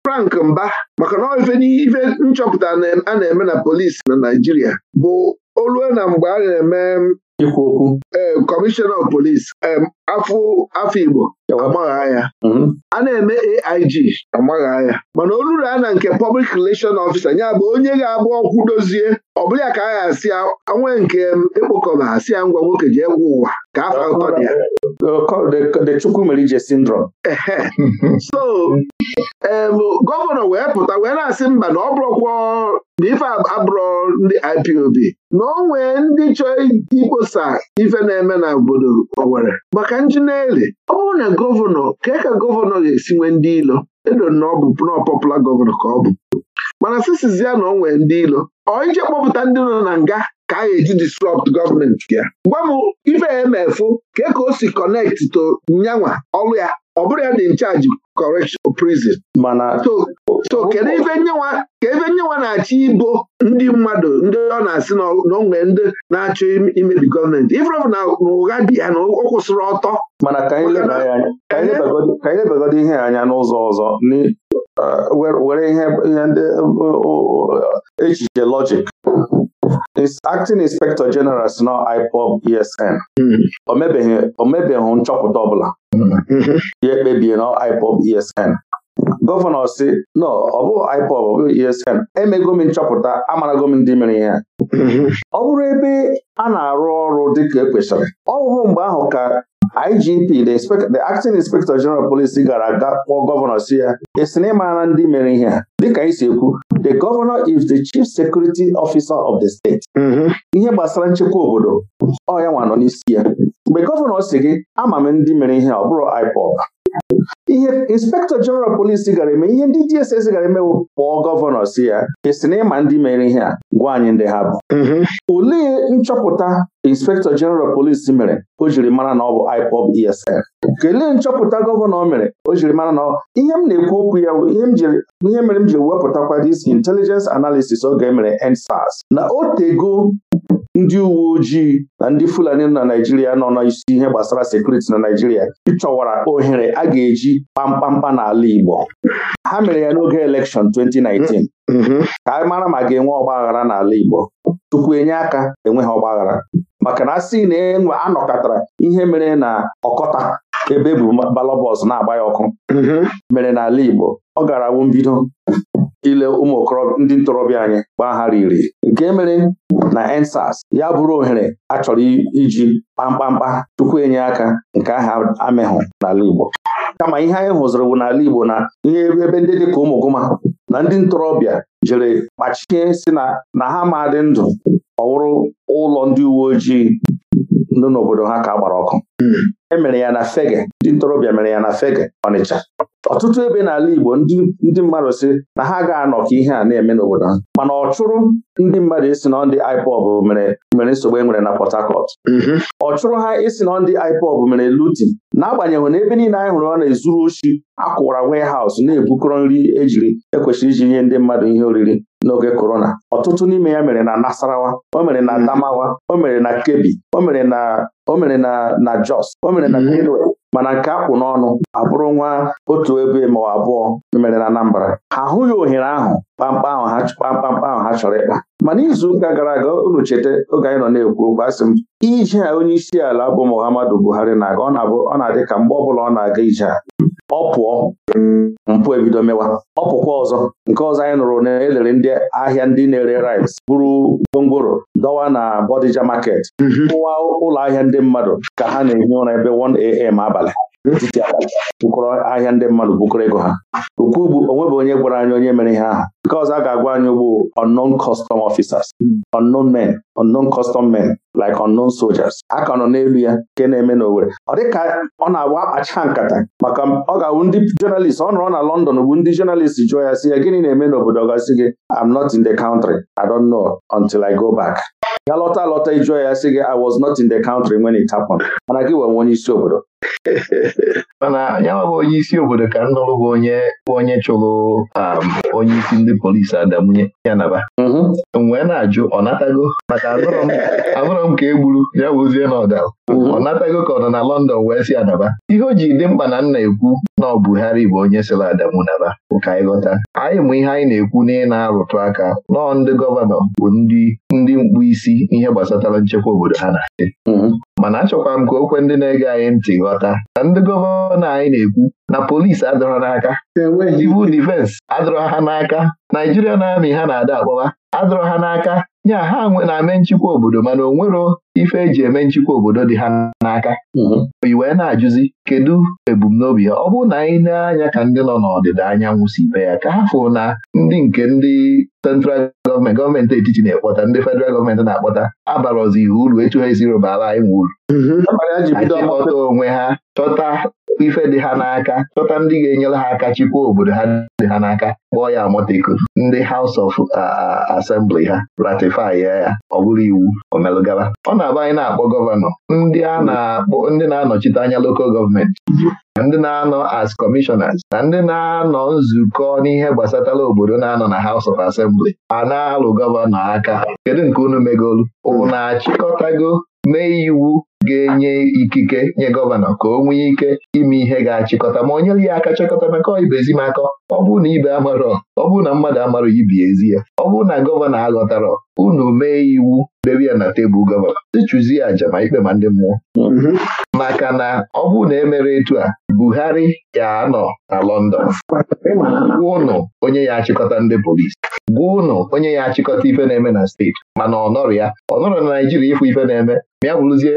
Frank Mba maka na ife nchọpụta a na-eme na polisi na Naijiria bụ olue na mgbe a na-eme ikwu okwu ee kọmishọna polis afọ Igbo amagha ya mhm. a na-eme AIG amagha ya mana oluru a na nke Public Relation Officer nya bụ onye ga-abụ ọkwụ dozie ọ bụrụ ya ka a ga-asị anwe nke ekpokọba asị ya ngwa nwoke ji egwu ụwa ka afọ atọ dị ya the Chukwumerije syndrome. so gọvanọ wee pụta wee na-asị mba na ọ bụrụ bụrụkwa na ife abụrọ ndị IPOB na o nwee ndị chọọ ikposa ife na-eme na obodo owere maka njineli ọ bụrụ na gọvanọ kee ka gọvanọ ga-esi nwee ndị ilo edo na ọ bụ nọọpọpụla gọvanọ ka ọ bụ mana sisizi ya na o nwee ndị ilo ọ ije kpọpụta ndị nọ na nga ka a eji disrupt gọọmenti ya gwa m ife emefu ka e ka o si kọnekti to nyanwa ọrụ ya ọ bụrụ ya dị nchaji correction prison so kedu ife nyenwa na-achọ ibo ndị mmadụ ndị ọ na-asị na onwe ndị na-achọ imebi gọọmenti ifrọbụ na ụgha dị ya na ọ kwụsịrị ọtọ mana ka anyị lebagodi ihe anya n'ụzọ ọzọ uh, were ihe ndị uh, uh, echiche lọjik acting inspector general si nọ IPOB ESN o nchọpụta ọbụla ya ekpebie IPOB ESN gọvanọ si no ọ bụghị IPOB ọ ESN emego nchọpụta amarago m ndị mere ihe ọ bụrụ ebe a na-arụ ọrụ dịka ekwesịrị ọ bụghị mgbe ahụ ka IGP the acting inspector general Police gara aga kpọọ gọvanọ si ya esi na ịmara ndị mere ihe a dịka anyị si ekwu the governor is the chief security officer of the state. Mm-hmm. ihe gbasara nchekwa obodo ọ ya nwa nọ n'isi ya mgbe gọvanọ si gị ama m ndị mere ihe ọ bụrụ IPOB ihe inspektọ jeneral polisi gara eme ihe ndị DSS gara emewo kpọọ gọvanọ si ya esi na ịma ndị mere ihe a gwa anyị ndị ha bụ mhm. olee nchọpụta inspektọ jeneral polisi mere o jiri mara na ọ bụ IPOB ESN kelee nchọpụta gọvanọ mere o jiri mara na ihe m na-ekwu okwu ya ihe mere m jiri wepụtakwa this intelligence analysis oge emere EndSARS na o tego ndị uwe ojii na ndị Fulani na Naijiria nọ n'isi ihe gbasara sekuriti na Naijiria ịchọwara ohere a ga-eji kpamkpamkpa n'ala Igbo ha mere ya n'oge elekshọn 2019 mm-hmm. ka mara ma ga-enwe ọgbaghara n'ala Igbo tupu enye aka enweghị ọgbaghara maka na a sị na enwe anọkọtara ihe mere na ọkọta ebe e bụ na-agba ya ọkụ mm-hmm. mere n'ala Igbo ọ gara wụ mbido ile ụmụ okorobịa ndị ntorobịa anyị gbaa ha riri nke mere na ensas ya bụrụ ohere a chọrọ iji kpamkpamkpa tupu enye aka nke ahụ amịhụ n'ala Igbo kama ihe anyị hụziri bụ n'ala Igbo na ihe ebe ndị dịka ụmụ gụma na ndị ntorobịa jere kpachie si na ha ma dị ndụ ọwụrụ ụlọ ndị uwe ojii nọ n'obodo ha ka gbara ọkụ hmm. e mere ya na Fege ndị ntorobịa mere ya na Fege Ọnịcha ọtụtụ ebe n'ala Igbo ndị mmadụ si na ha ga-anọ ka ihe a na-eme n'obodo ha mana ọ chụrụ ndị mmadụ isi na ndị IPOB mere mere nsogbu e nwere na Port Harcourt mm-hmm. ọ chụrụ ha isi na ndị IPOB mere lutin n'agbanyeghị na ebe niile anyị hụrụ ọ na-ezuru oshi akwụwara warehouse na-ebukọrọ nri ejiri ekwesịrị iji nye ndị mmadụ ihe oriri n'oge korona ọtụtụ n'ime ya mere na Nasarawa o mere na mm-hmm. Adamawa o mere na Kebbi o mere na o mere na na Jos o mere na mm-hmm. Benue mana nke akpụ n'ọnụ abụrụ nwa otu ebe ma abụọ e mere na Anambra ha ahụghị ohere ahụ kpamkpam ahụ ha chọrọ ịkpa mana izuụka gara aga unu cheta oge anyị nọ na-ekwu okwu asị m ije a onye isi ala bụ Muhammadu Buhari na-aga ọ na-abụ ọ na-adị ka mgbe ọbụla ọ na-aga ije a ọ pụọ mpụ ebido mewa ọ pụkwa ọzọ nke ọzọ anyị nụrụ na elere ndị ahịa ndị na-ere rice bụrụ gwongworo dọwa na Bodija market mhm. ụwa ụlọ ahịa ndị mmadụ ka ha na-ehi ụra ebe 1am abalị titi abalị bụkọrọ ahịa ndị mmadụ bukọrọ ego ha okwu bụ onwe bụ onye gwara anya onye mere ihe ahụ because a ga-agwa anyị unknown custom officers unknown men unknown custom men like unknown soldiers a ka nọ n'elu ya nke na-eme n'Owerri ọ dịka ọ na-agba akpacha nkata maka ọ ga-awụ ndị jọnalist ọ nọrọ na London bụ ndị jọnalist jụọ ya si ya gịnị na-eme n'obodo gị I'm not in the country I don't know until I go back ya lọta lọta ịjụọ ya sị gị I was not in the country when it happened mana gị wee onye isi obodo mana nwa bụ onye isi obodo ka m nụrụ bụ onye onye chụrụ um, onye isi ndị polisi adamunye ya naba mhm. na-ajụ ọ natago maka abụrọ m ka e gburu ya wuzie na ọda. Mhm. ọ natago ka ọ nọ na London wee si adaba ihe o ji dị mkpa na nna ekwu na ọ Buhari bụ onye sịrị Adamu naba ka anyị ghọta anyị mụ ihe anyị na-ekwu na ị na-arụtụ aka nọọ ndị gọvanọ bụ ndị ndị mkpu isi ihe gbasatara nchekwa obodo ha na mhm. mana achọkwara m ka okwe ndị na-ege anyị ntị ghọta na ndị gọvanọ ọ na anyị na-ekwu na polisi adọrọ n'aka e civil defense adọrọ ha n'aka na amị ha na-ada akpọwa adọrọ ha n'aka nya ha na-eme nchịkwa obodo mana o nwero ife eji eme nchịkwa obodo dị ha n'aka mhm. i wee na-ajụzi kedu ebumnobi ha ọ bụ na anyị na-anya ka ndị nọ n'ọdịda anyanwụ si be ya ka ha fụ na ndị nke ndị central gọọmenti gọọmenti etiti na-ekpọta ndị fedral gọọmenti na-akpọta abara ihe uru etu ha esiri bara anyị nwe uru chịkọta onwe ha chọta ife dị ha n'aka chọta ndị ga-enyere ha aka chịkwa obodo ha dị ha n'aka kpọọ ya amọteko ndị House of Assembly ha ratifi ya ọ bụrụ iwu omelụgaba ọ na-abụ anyị na-akpọ gọvanọ ndị a na-akpọ ndị na-anọchite anya Lokal gọọmenti ndị na-anọ as commissioners na ndị na-anọ nzukọ n'ihe gbasatara obodo na-anọ na House of Assembly a na-alụ gọvanọ aka kedu nke unu megolu unu na-achịkọtago mee iwu ga-enye ikike nye gọvanọ ka o nwee ike ime ihe ga-achịkọta ma o nyere ya aka chịkọta maka ibezi m akọ ọ bụrụ na ibe amarọ ọ bụrụ na mmadụ amarọ ibi ezi ya ọ bụrụ na gọvanọ aghọtarọ unu mee iwu debe ya na tebụl gọvanọ sichụzie aja ma ikpe ma ndị mmụọ mhm. maka na ọ bụ na emere etu a Buhari ya anọ na London ụnụ onye ya achịkọta ndị polisi gwa ụnụ onye ya achịkọta ife na-eme na steeti mana ọnọrọ ya ọnọrọ na Naijiria ịfụ ife na-eme ma ya bụrụzie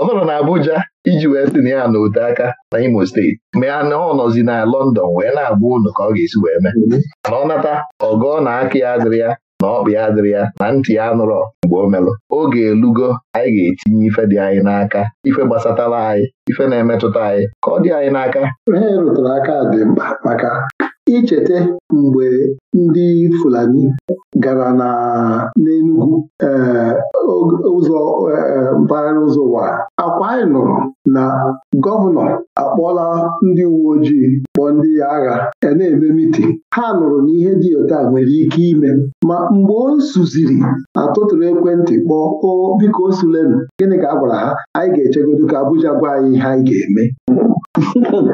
ọnọrọ na Abuja iji wee si na ya na ote aka na Imo steeti ma ya na ọ nọzi na London wee na agba ụnụ ka ọ ga-esi wee mee mhm. mana ọ nata ọgọ na aka ya adịrị ya na ọkpụ ya adịrị ya na ntị ya nụrọ mgbe o melụ oge elugo anyị ga-etinye ife dị anyị n'aka ife gbasatara anyị ife na-emetụta anyị ka ọ dị anyị n'aka ihe rụtụrụ aka dị mkpa maka icheta mgbe ndị Fulani gara na n'Enugwu eh, ụzọ eh, mpaghara ụzọ wara akwa anyị nụrụ na gọvanọ akpọla ndị uwe ojii kpọọ ndị agha ya e na-eme mitin ha nụrụ na ihe dị otu a nwere ike ime ma mgbe o suziri atụtụrụ ekwentị kpọọ o biko o gịnị ka a gwara ha anyị ga-echegodo ka Abuja gwa anyị ihe anyị ga-eme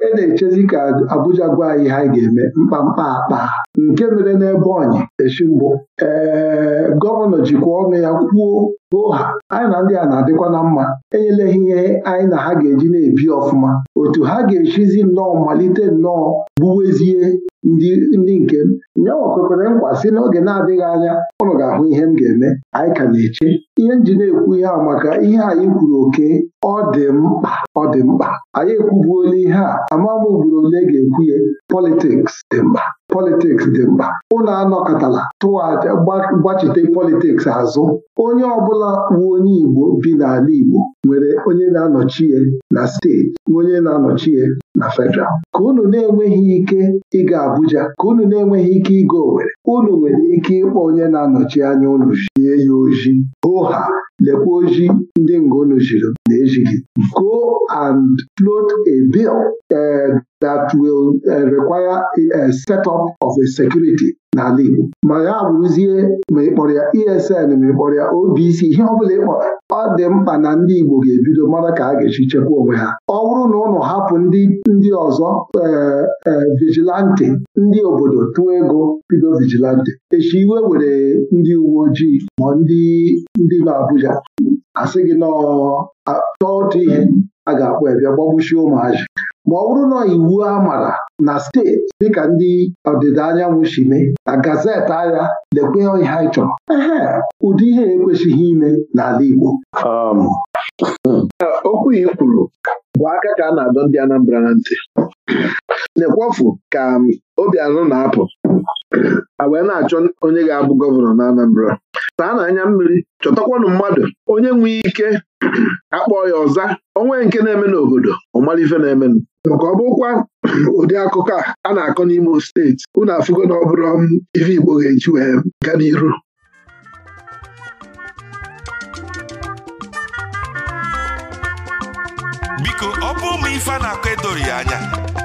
e na-echezi ka Abuja gwa anyị ha ga-eme mkpamkpa akpa nke mere n'ebe ọnyị echi mbụ ee gọvanọ jikwa ọnụ ya kwuo ụha anyị na ndị a na-adịkwa na mma enyela ha ihe anyị na ha ga-eji na-ebi ọfụma otu ha ga-echizi nnọọ malite nnọọ gbuwezie ndị ndị nke m nyawa kwekwere nkwa sị n'oge na-adịghị anya ụnụ ga-ahụ ihe m ga-eme anyị ka na-eche ihe m ji na-ekwu ihe a maka ihe anyị kwuru oke ọ dị mkpa ọ dị mkpa anyị ekwubuola ihe a ama m ugboro ole ga-ekwu ya politiks dị mkpa politiks dị mkpa ụnụ anọkọtala tụwa aja gbachite politiks azụ onye ọbụla wu onye Igbo bi n'ala Igbo nwere onye na-anọchi na steeti onye na-anọchi ya na federal ka unu na-enweghị ike ịga Abuja ka unu na-enweghị ike ịga Owerri unu nwere ike ịkpọ onye na-anọchi anya unu jie ya oji oha lekwa oji ndị ngonu jiri na-ejighị go and float a bill eh, that will eh, require a eh, set up of a security n'ala Igbo ma ya bụrụzie ma ị kpọrọ ya ESN ma ịkpọrọ kpọrọ ya OBC ihe ọbụla ịkpọ ọ dị mkpa na ndị Igbo ga-ebido mara ka a ga-esi chekwa onwe ha ọ bụrụ na ụlọ hapụ ndị ndị ọzọ e, e, vigilante ndị obodo tụọ ego bido vigilante echi iwe were ndị uwe ojii ma ndị ndị Abuja. asị gị nọọ chọọ otu ihe a ga-akpọ ya bịa gbagbuchie ụmụazị ma ọ bụrụ na iwu a mara na steeti dịka ndị ọdịda anyanwụ si mee na gazeti agha lekwe ihe anyị chọrọ ụdị ihe ekwesịghị ime n'ala Igbo um, okwu i kwuru bụ aka ka a na-adọ ndị Anambra na ntị na-ekwofu ka um, Obianọ na-apụ a wee na-achọ onye ga-abụ gọvanọ na Anambra taa anya mmiri chọtakwanụ mmadụ onye nwee ike akpọ ya ọza onwe nke na-eme n'obodo ọmalife na-emenụ maka ọ bụkwa ụdị akụkọ a a na-akọ n'Imo steeti unu afụgo na ọ bụrụ um, ife Igbo ga-eji wee gaa n'iru biko ọ bụ ụmụ ife a na-akọ edori anya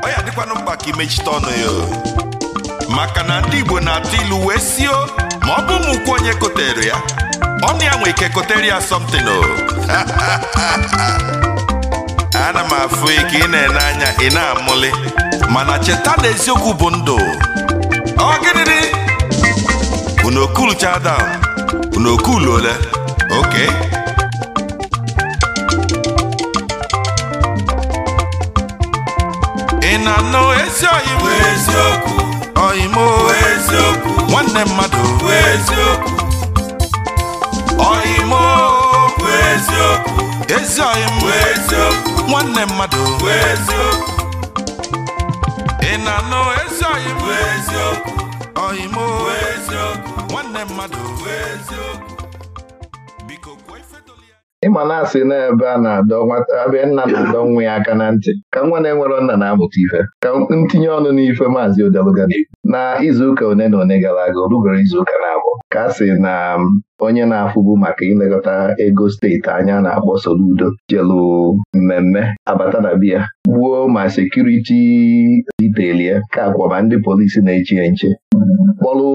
ọ ya dịkwanụ mkpa ka imechite ọnụ ya maka na ndị Igbo na-atụ ilu wee sio ma ọ bụ ụmụkwu onye kotere ya ọnụ ya nwe ike kotere ya somtin o ana m afụ ike ị na-ene anya ị na amụlị mana cheta na eziokwu bụ ndụ ọ gịnịdị unu okulu chadam unu okulu ole oke ị na-anụ ezi oyibo eziokwu oyimo eziokwu nwanne mmadụ eziokwu oyimo nwanne mmadụ ị na-anụ nwanne mmadụ ịma na-asị n'ebe a na-adọ nwata abịa nna na-adọ nwa ya aka na ntị ka nwa na-enwere nna na-amụta ife ka ntinye ọnụ n'ife maazị odeluga na izuụka one na one gara aga o izuụka na-abụọ ka a sị na um, onye na-afụbu maka ilekọta ego steeti anya na-akpọ Soludo jelu mmemme abata na biya gbuo ma sekuriti ditelie ka akwa ndị polisi na-echi nche kpọlụ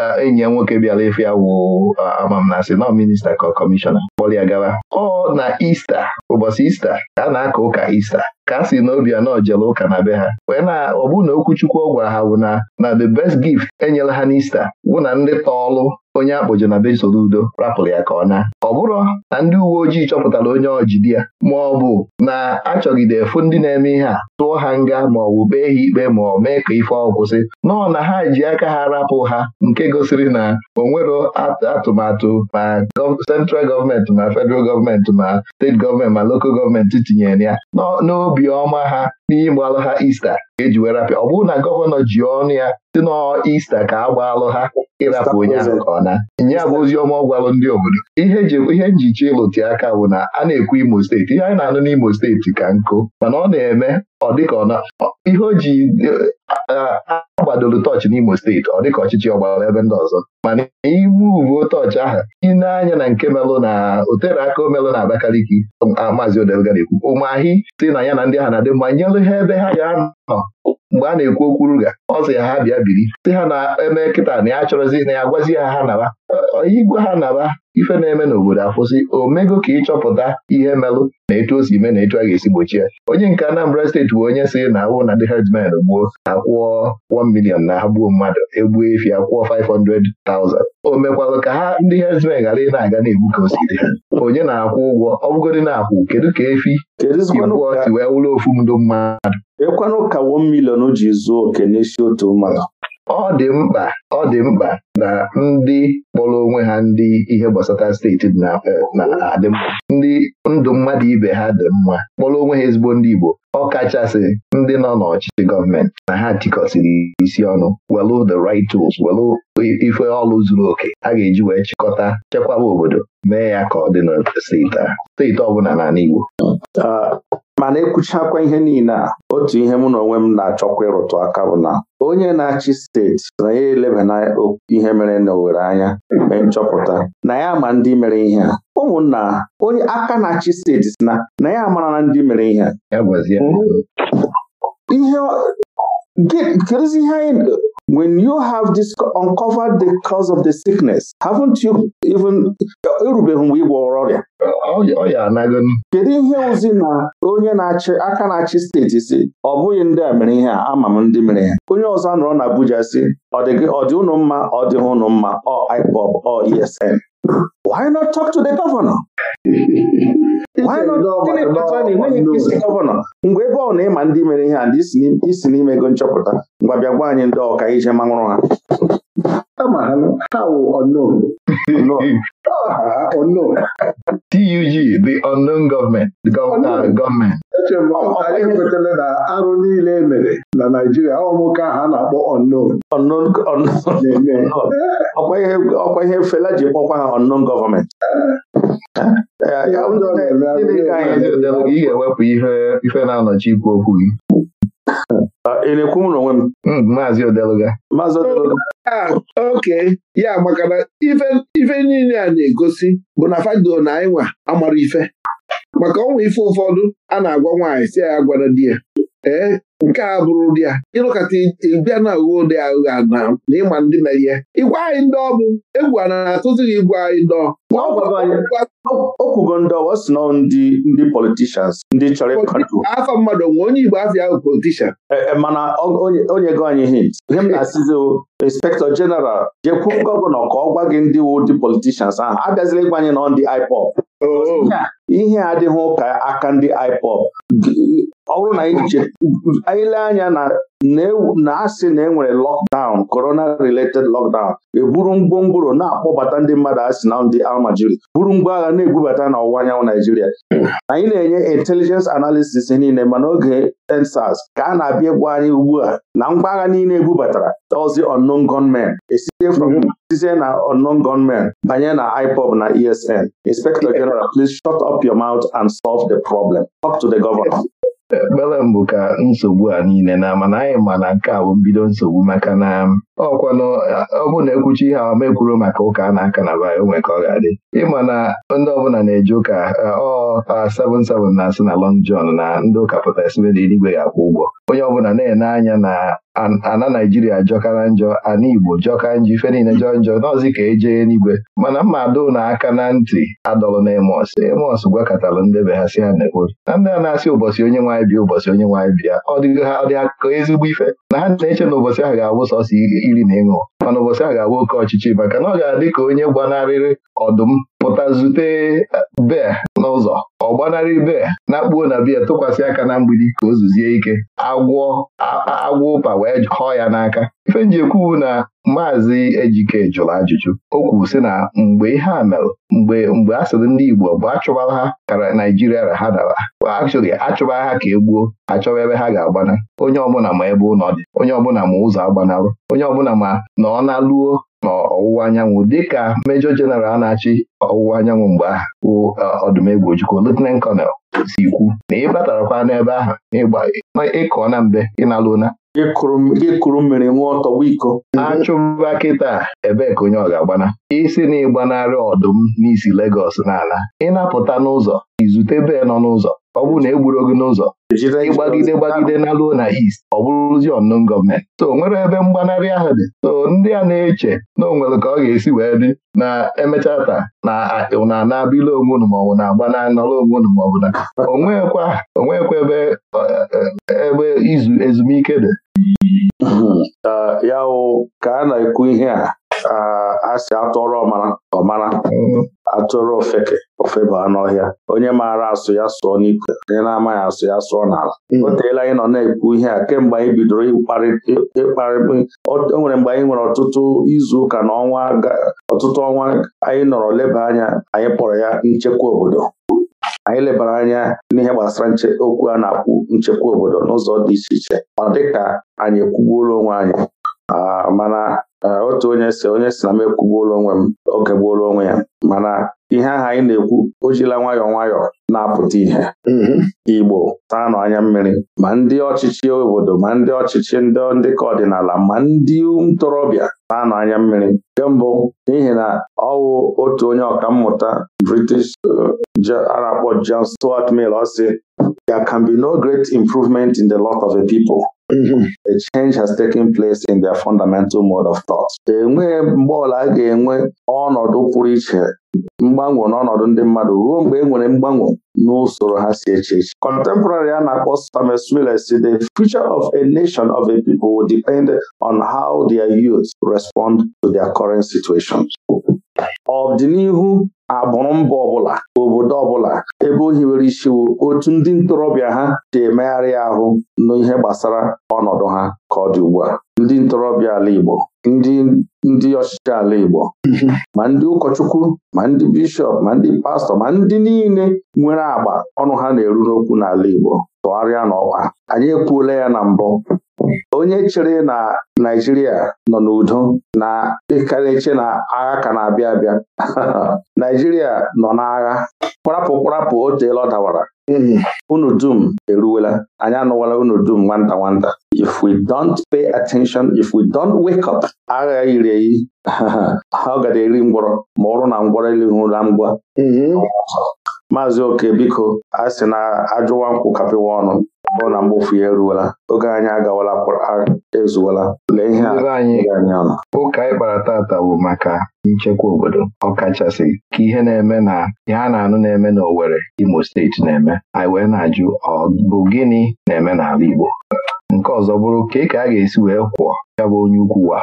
uh, enyi ya nwoke bịara efe awụ uh, amamnasị nọ minista ka kọmishọna kpọlụ ya gara ọ na ista ụbọchị ista ka a na-aka ụka ista ka a sị na anọ jere ụka na be ha wee na ọ na okwuchukwu ọ ha bụ na na the best gift enyela ha n'Ista wụ na ndị tọọlụ onye akpọjọ na be udo rapụrụ ya ka ọ na ọ bụrụ na ndị uwe ojii chọpụtara onye ọjidi ya ma ọ bụ na achọgide efu ndị na-eme ihe a tụọ ha nga ma ọ bụ bee ha ikpe ma ọ mee ka ife ọ kwụsị nọọ na ha ji aka ha rapụ ha nke gosiri na o atụmatụ ma sentral gọọmenti ma federal gọọmenti ma steeti gọọmenti ma lokal gọọmenti tinyere ya n'obi ọma ha n'ịgbalụ ha ista eji wee rapịa ọ bụrụ na gọvanọ ji ọnụ ya si Ista ka a gbaalụ ha ịrapụ onye ahụ ọna. ọ nye bụ ozi ọma ọ gwalụ ndị obodo ihe ihe njicha ịlụti aka bụ na a na-ekwu Imo steeti ihe anyị na-anụ n'Imo steeti ka nkụ mana ọ na-eme ọ dịka ọ ihe o ji agbadoro tọọchị n'Imo steeti ọ dịka ọchịchị ọgbara ebe ndị ọzọ mana iwu uwe tọọchị ahụ ịna na nke melụ na otere aka omelụ na Abakaliki maazị Odelga na-ekwu ụmụahị si na ya na ndị ha na-adị mma nyelụ ha ebe ha ga-anọ mgbe a na-ekwu okwu ruga ọ sị ha bịa biri sị ha na-eme kịta na ya chọrọzi na ya gwazi ya ha naba onye igwe ha naba ife na-eme n'obodo akwụsị omego ka ịchọpụta ihe melụ na etu o si eme na etu a ga-esi gbochie onye nke Anambra steeti bụ onye si na awụ na ndị herdsmen gbuo akwụọ 1 million na ha gbuo mmadụ egbuo efi akwụọ 500,000 o mekwalụ ka ha ndị herdsmen ghara ị na-aga na-egbu ka osiri ha onye na-akwụ ụgwọ ọ bụgodị na-akwụ kedu ka efi si wee ofu ndụ mmadụ ekwenụ ka wo milion ji zuo oke n'isi otu mmadụ ọ dị mkpa ọ dị mkpa na ndị kpọrọ onwe ha ndị ihe gbasara steeti na-adị e, mma ndị ndụ mmadụ ibe ha dị mma kpọrọ onwe ha ezigbo ndị Igbo ọ kachasị ndị nọ n'ọchịchị gọọmenti na ha tikọsiri isi ọnụ welu the right tools welu ife ọlụ zuru oke a ga-eji wee chịkọta chekwaba obodo mee ya ka ọ dị na steeti a steeti ọ bụla n'ala Igbo ah, mana ekwuchakwa ihe niile a otu ihe mụ na onwe m na-achọkwa ịrụtụ aka bụ na onye na-achị steeti na ya na ihe mere na Owerri anya mee nchọpụta na ya ma ndị mere ihe a ụmụnna onye aka na-achị steeti na na ya mara na ndị mere ihe a ihe kedụzi ihe anyị when you have this uncovered the cause of the sickness haven't you even erubeghị mgbe ịgwọ ọrịa kedu ihe ozi na onye na-achị aka na-achị steeti si ọ bụghị ndị a mere ihe a ama m ndị mere ya onye ọzọ nọrọ na Abuja si ọ dị ụnụ mma ọ dịghị ụnụ mma ọ IPOB ọ ESN Why not talk to the governor? Why not gọvanọ mgbe ebe ọ na-ịma ndị mere ihe a ndị isi ego nchọpụta mgbe bịa gwa anyị ndị ọka ije manwụrụ ha TUG the unknown government, the government eche m anyị ekwetala na arụ niile e mere na Naijiria ọ nwoke ahụ a na-akpọ unknown ọkwa ihe Fela ji kpọkwa ha unknown gọọmenti eh, ị ga-ewepụ ife na-anọchi ikwu okwu gị ah, ị na-ekwu m n'onwe m hmm, maazị odeluga ah, oke ya maka na ife niile a na-egosi bụ na fado na anyị nwa amara ife maka ọnwa ife ụfọdụ a na-agwa nwaanyị si ya gwara di ya ee nke a bụrụ ụdị a ịlụkọta ịbịa na uwe ụdị aghụghọ na ịma ndị na merie igwe anyị ndị ọ bụ egwu a na-atụzighị igwe anyị ndị okwugo ndị ọwa si ndị ndị politishans ndị chọrọ ịkọntrol afọ mmadụ nwe onye Igbo afọ ahụ politishan e, e, mana onye go anyị hint ihe m na-asịzi inspektọ jeneral jekwu gọvanọ ka ọ gwa gị ndị wu ndị politishans ahụ abịazila ịgwa anyị nọ ndị IPOB oh. ihe adịghị ụka aka ndị IPOB ọ bụrụ na anyị lee anya na asị na enwere e lọkdaụn korona related lọkdaụn eburu ngwongworo na-akpọbata ndị mmadụ asị na ndị almajiri buru ngwa agha na-ebubata n'ọwụwa anyanwụ Naijiria anyị na-enye intelijens analisis niile mana oge ensas ka a na-abịa egwu anyị ugbu a na ngwa agha niile ebubatara ozi unknown gunmen esite site na onon gunmen banye na IPOB na ESN Inspector General, please shut up your mouth and solve the problem. Talk to the governor. ekpere mbụ ka nsogbu a niile na mana anyị ma na nke a bụ mbido nsogbu maka na ọkwanụ ọ na ekwuchi ihe ahụ mekwuru maka ụka a na-aka na ba onwe ka ọ ga-adị ịma na ndị ọbụla na-eji ụka ọ 77 na-asị na Long na ndị ụka pụta sibe na eluigwe ga-akwụ ụgwọ onye ọbụla na-ene anya na ana Naijiria jọkara njọ ana Igbo jọka njọ ife niile jọ njọ n'ọzi ka eje n'igwe mana adụ na aka na ntị adọlụ na Emos Emos gwakọtara be ha si ha na-ekwu na ndị a na-asị ụbọchị onye nwaanyị bịa ụbọchị onye nwaanyị bịa ha akụkọ ezigbo ife na ha na-eche na ụbọchị ahụ ga-abụ sọsọ iri na ịṅụ mana ụbọchị ahụ ga-abụ oke ọchịchị maka na ọ ga-adị ka onye gbanarịrị ọdụm pụta zute bee n'ụzọ ọ gbanarị bee na-akpuo na biya tụkwasị aka na mgbidi ka o zuzie ike agwọ agwọ ụpa wee kọọ ya n'aka ife nji na maazị Ejike jụrụ ajụjụ o kwuru sị na mgbe ihe a mere mgbe mgbe a sịrị ndị Igbo bụ achụbara ha kara Naijiria ra ha dara akchụghị achụbara ha ka e gbuo achọba ebe ha ga-agbana onye ọbụla ma ebe ụnọ dị onye ọbụla ma ụzọ agbanalụ onye ọbụla ma na ọ na-alụo n'ọwụwa anyanwụ dịka mejọ jeneral a na-achị ọwụwa anyanwụ mgbe ahụ bụ uh, ọdụmegwu ojukwu lieutenant colonel si kwu na ị batarakwa n'ebe ahụ ịkọ na mbe ị na ịkụrụ mmiri nwa ọtọ iko achụba kịta ebee ka onye ọ ga-agbana isi na ịgbanarị ọdụm n'isi Legọs n'ala ịnapụta n'ụzọ izute bee nọ n'ụzọ ọ bụrụ na egburu ogo n'ụzọ ịgbagide gbagide na luo na East ọ bụrụzi ọnụ gọọmenti so nwere ebe mgbanarị ahụ dị so ndị a na-eche na onwere ka ọ ga-esi wee dị na emechaa taa na na na-abịla onwe unu maọbụ na agba na nọrọ onwe unu maọbụ na onwekwa onwekwa ebe e, e, ebe izu ezumike dị hmm. ya ka a na-ekwu ihe a ha si atụrụ ọmara ọmara mm-hmm. atụrụ ofeke ofeba n'ọhịa onye maara asụ ya sụọ n'ikwe onye na-amaghị asụ ya sụọ n'ala mm-hmm. o teela anyị nọ na-ekwu ihe a kemgbe anyị bidoro ịkparị o nwere mgbe anyị nwere ọtụtụ izu ụka na ọnwa ọtụtụ ọnwa anyị nọrọ leba anya anyị kpọrọ ya nchekwa obodo anyị lebara anya n'ihe gbasara okwu a na-akwụ nchekwa obodo n'ụzọ dị iche iche ọ dịka anyị ekwugbuola onwe anyị mana otu onye si onye si na m ekwugbuola onwe m okegbuola onwe ya mana ihe ahụ anyị na-ekwu o jila nwayọọ nwayọọ na-apụta ihe mm-hmm. Igbo taa nọ anya mmiri ma ndị ọchịchị obodo ma ndị ọchịchị ndị ndịka ọdịnala ma ndị ntorobịa taa nọ anya mmiri nke mbụ n'ihi na ọwụ otu onye ọkammụta British uh, a na-akpọ John Stuart Mill ọ sị there can be no great improvement in the lot of a people a change has taken place in their fundamental mode of thought. enweghị mgbe ọla a ga-enwe ọnọdụ pụrụ iche mgbanwe n'ọnọdụ ndị mmadụ ruo mgbe e nwere mgbanwe n'usoro ha si eche eche contemporary a na-akpọ Samuel Smiler si the future of a nation of a people will depend on how their youth respond to their current situations ọdịnihu agbụrụ mba ọbụla obodo ọbụla ebe o hiwere isiwo otu ndị ntorobịa ha ji emegharị ahụ n'ihe gbasara ọnọdụ ha ka ọ dị ugbu a ndị ntorobịa ala Igbo ndị ndị ọchịchị ala Igbo ma ndị ụkọchukwu ma ndị bishọp ma ndị pastọ ma ndị niile nwere agba ọnụ ha na-eru n'okwu n'ala Igbo tụgharịa n'ọkwa anyị ekwuola ya na mbụ onye chere na Naijiria nọ n'udo na ịkarịche na agha ka na-abịa abịa Naijiria nọ n'agha kwarapụ kwarapụ otu teela ọ dawara hmm. unu dum eruwela anyị anụwala unu dum nwanta nwanta if we don't pay attention if we don't wake up agha yiri eyi ha ọ gada eri ngwọrọ ma ọrụ na ngwọrọ ụra ngwa hmm. maazị oke biko a sị na ajụwa nkwụ kapịwa ọnụ ọ na mgbofu ya eruwela oge anyị agawala ezuola! lee ihe ụka anyị kpara tata bụ maka nchekwa obodo ọkachasị ka ihe na-eme na ihe a na-anụ na-eme n'Owerri Imo steeti na-eme anyị wee na-ajụ ọ bụ gịnị na-eme n'ala Igbo nke ọzọ bụrụ ka ị ka a ga-esi wee kwụọ ya bụ onye ukwu wa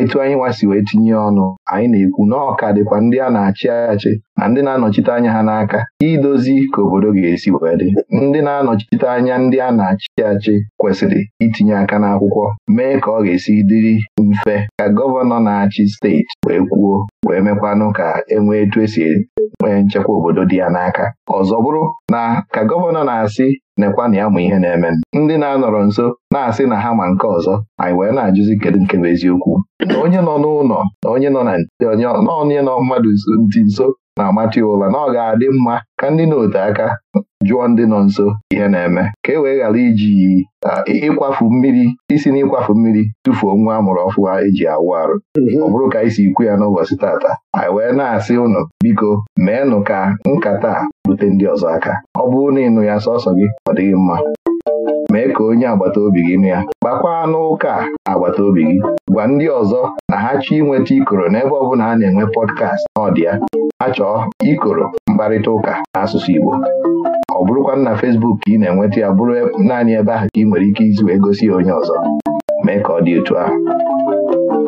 etu anyị nwasi wee tinye ọnụ anyị na-ekwu na ọka dịkwa ndị a na-achị achị na ndị na-anọchite anya ha n'aka idozi ka obodo ga-esi wee dị ndị na-anọchite anya ndị a na-achị achị kwesịrị itinye aka n'akwụkwọ mee ka ọ ga-esi dịrị mfe ka gọvanọ na-achị steeti wee kwuo wee mekwanụ ka enwee etu esi nwee nchekwa obodo dị ya n'aka ọzọ bụrụ na ka gọvanọ na-asị nekwanụ ya mụ ihe na-eme ndị na-anọrọ nso na-asị na ha ma nke ọzọ anyị wee na-ajụzi kedu nke bụ eziokwu na onye nọ n'ụlọ na onye nọ na onye nọ mmadụ ntị nso na-amata ya na ọ ga-adị mma ka ndị na n'ote aka jụọ ndị nọ nso ihe na-eme ka e wee ghara iji ịkwafu mmiri isi n'ịkwafu mmiri tụfuo nwa a mụrụ ọfụma eji awụ arụ mhm. ọ bụrụ ka anyị si ikwu ya n'ụbọchị tata anyị wee na-asị ụnụ biko meenụ ka nkata rute ndị ọzọ aka ọ bụrụ na ịnụ ya sọsọ gị ọ dịghị mma mee ka onye agbata obi gị nụ ya gbakwa n'ụka agbata obi gị gwa ndị ọzọ na ha chọọ inweta ikoro n'ebe ọ bụla a na-enwe pọdkast na ya ha chọọ ikoro mkparịta ụka n'asụsụ Igbo ọ bụrụkwa na Fesbuk ka ị na-enweta ya bụrụ e, naanị ebe ahụ ka ị nwere ike isi wee gosi ya onye ọzọ mee ka ọ dị otu ahụ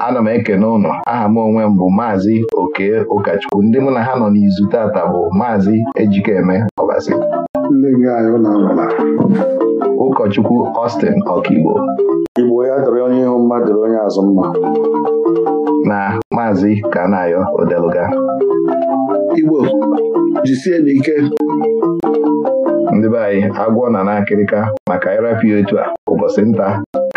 ana m ekene ụnụ aha m onwe m bụ maazị oke ụkọchukwu ndị mụ na ha nọ n'izu tata bụ maazị ejikeme ọbasi ụkọchukwu Austin Ọkigbo Igbo ya dọrọ onye ihu mma dọrọ onye azụ mma na maazị Kanayo Odeluga Igbo jisie n'ike ndị be anyị agwọ na n'akịrịka maka ịrapụ ya otu a ụbọchị nta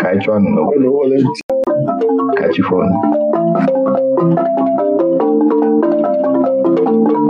ka anyị chụọ n'okwu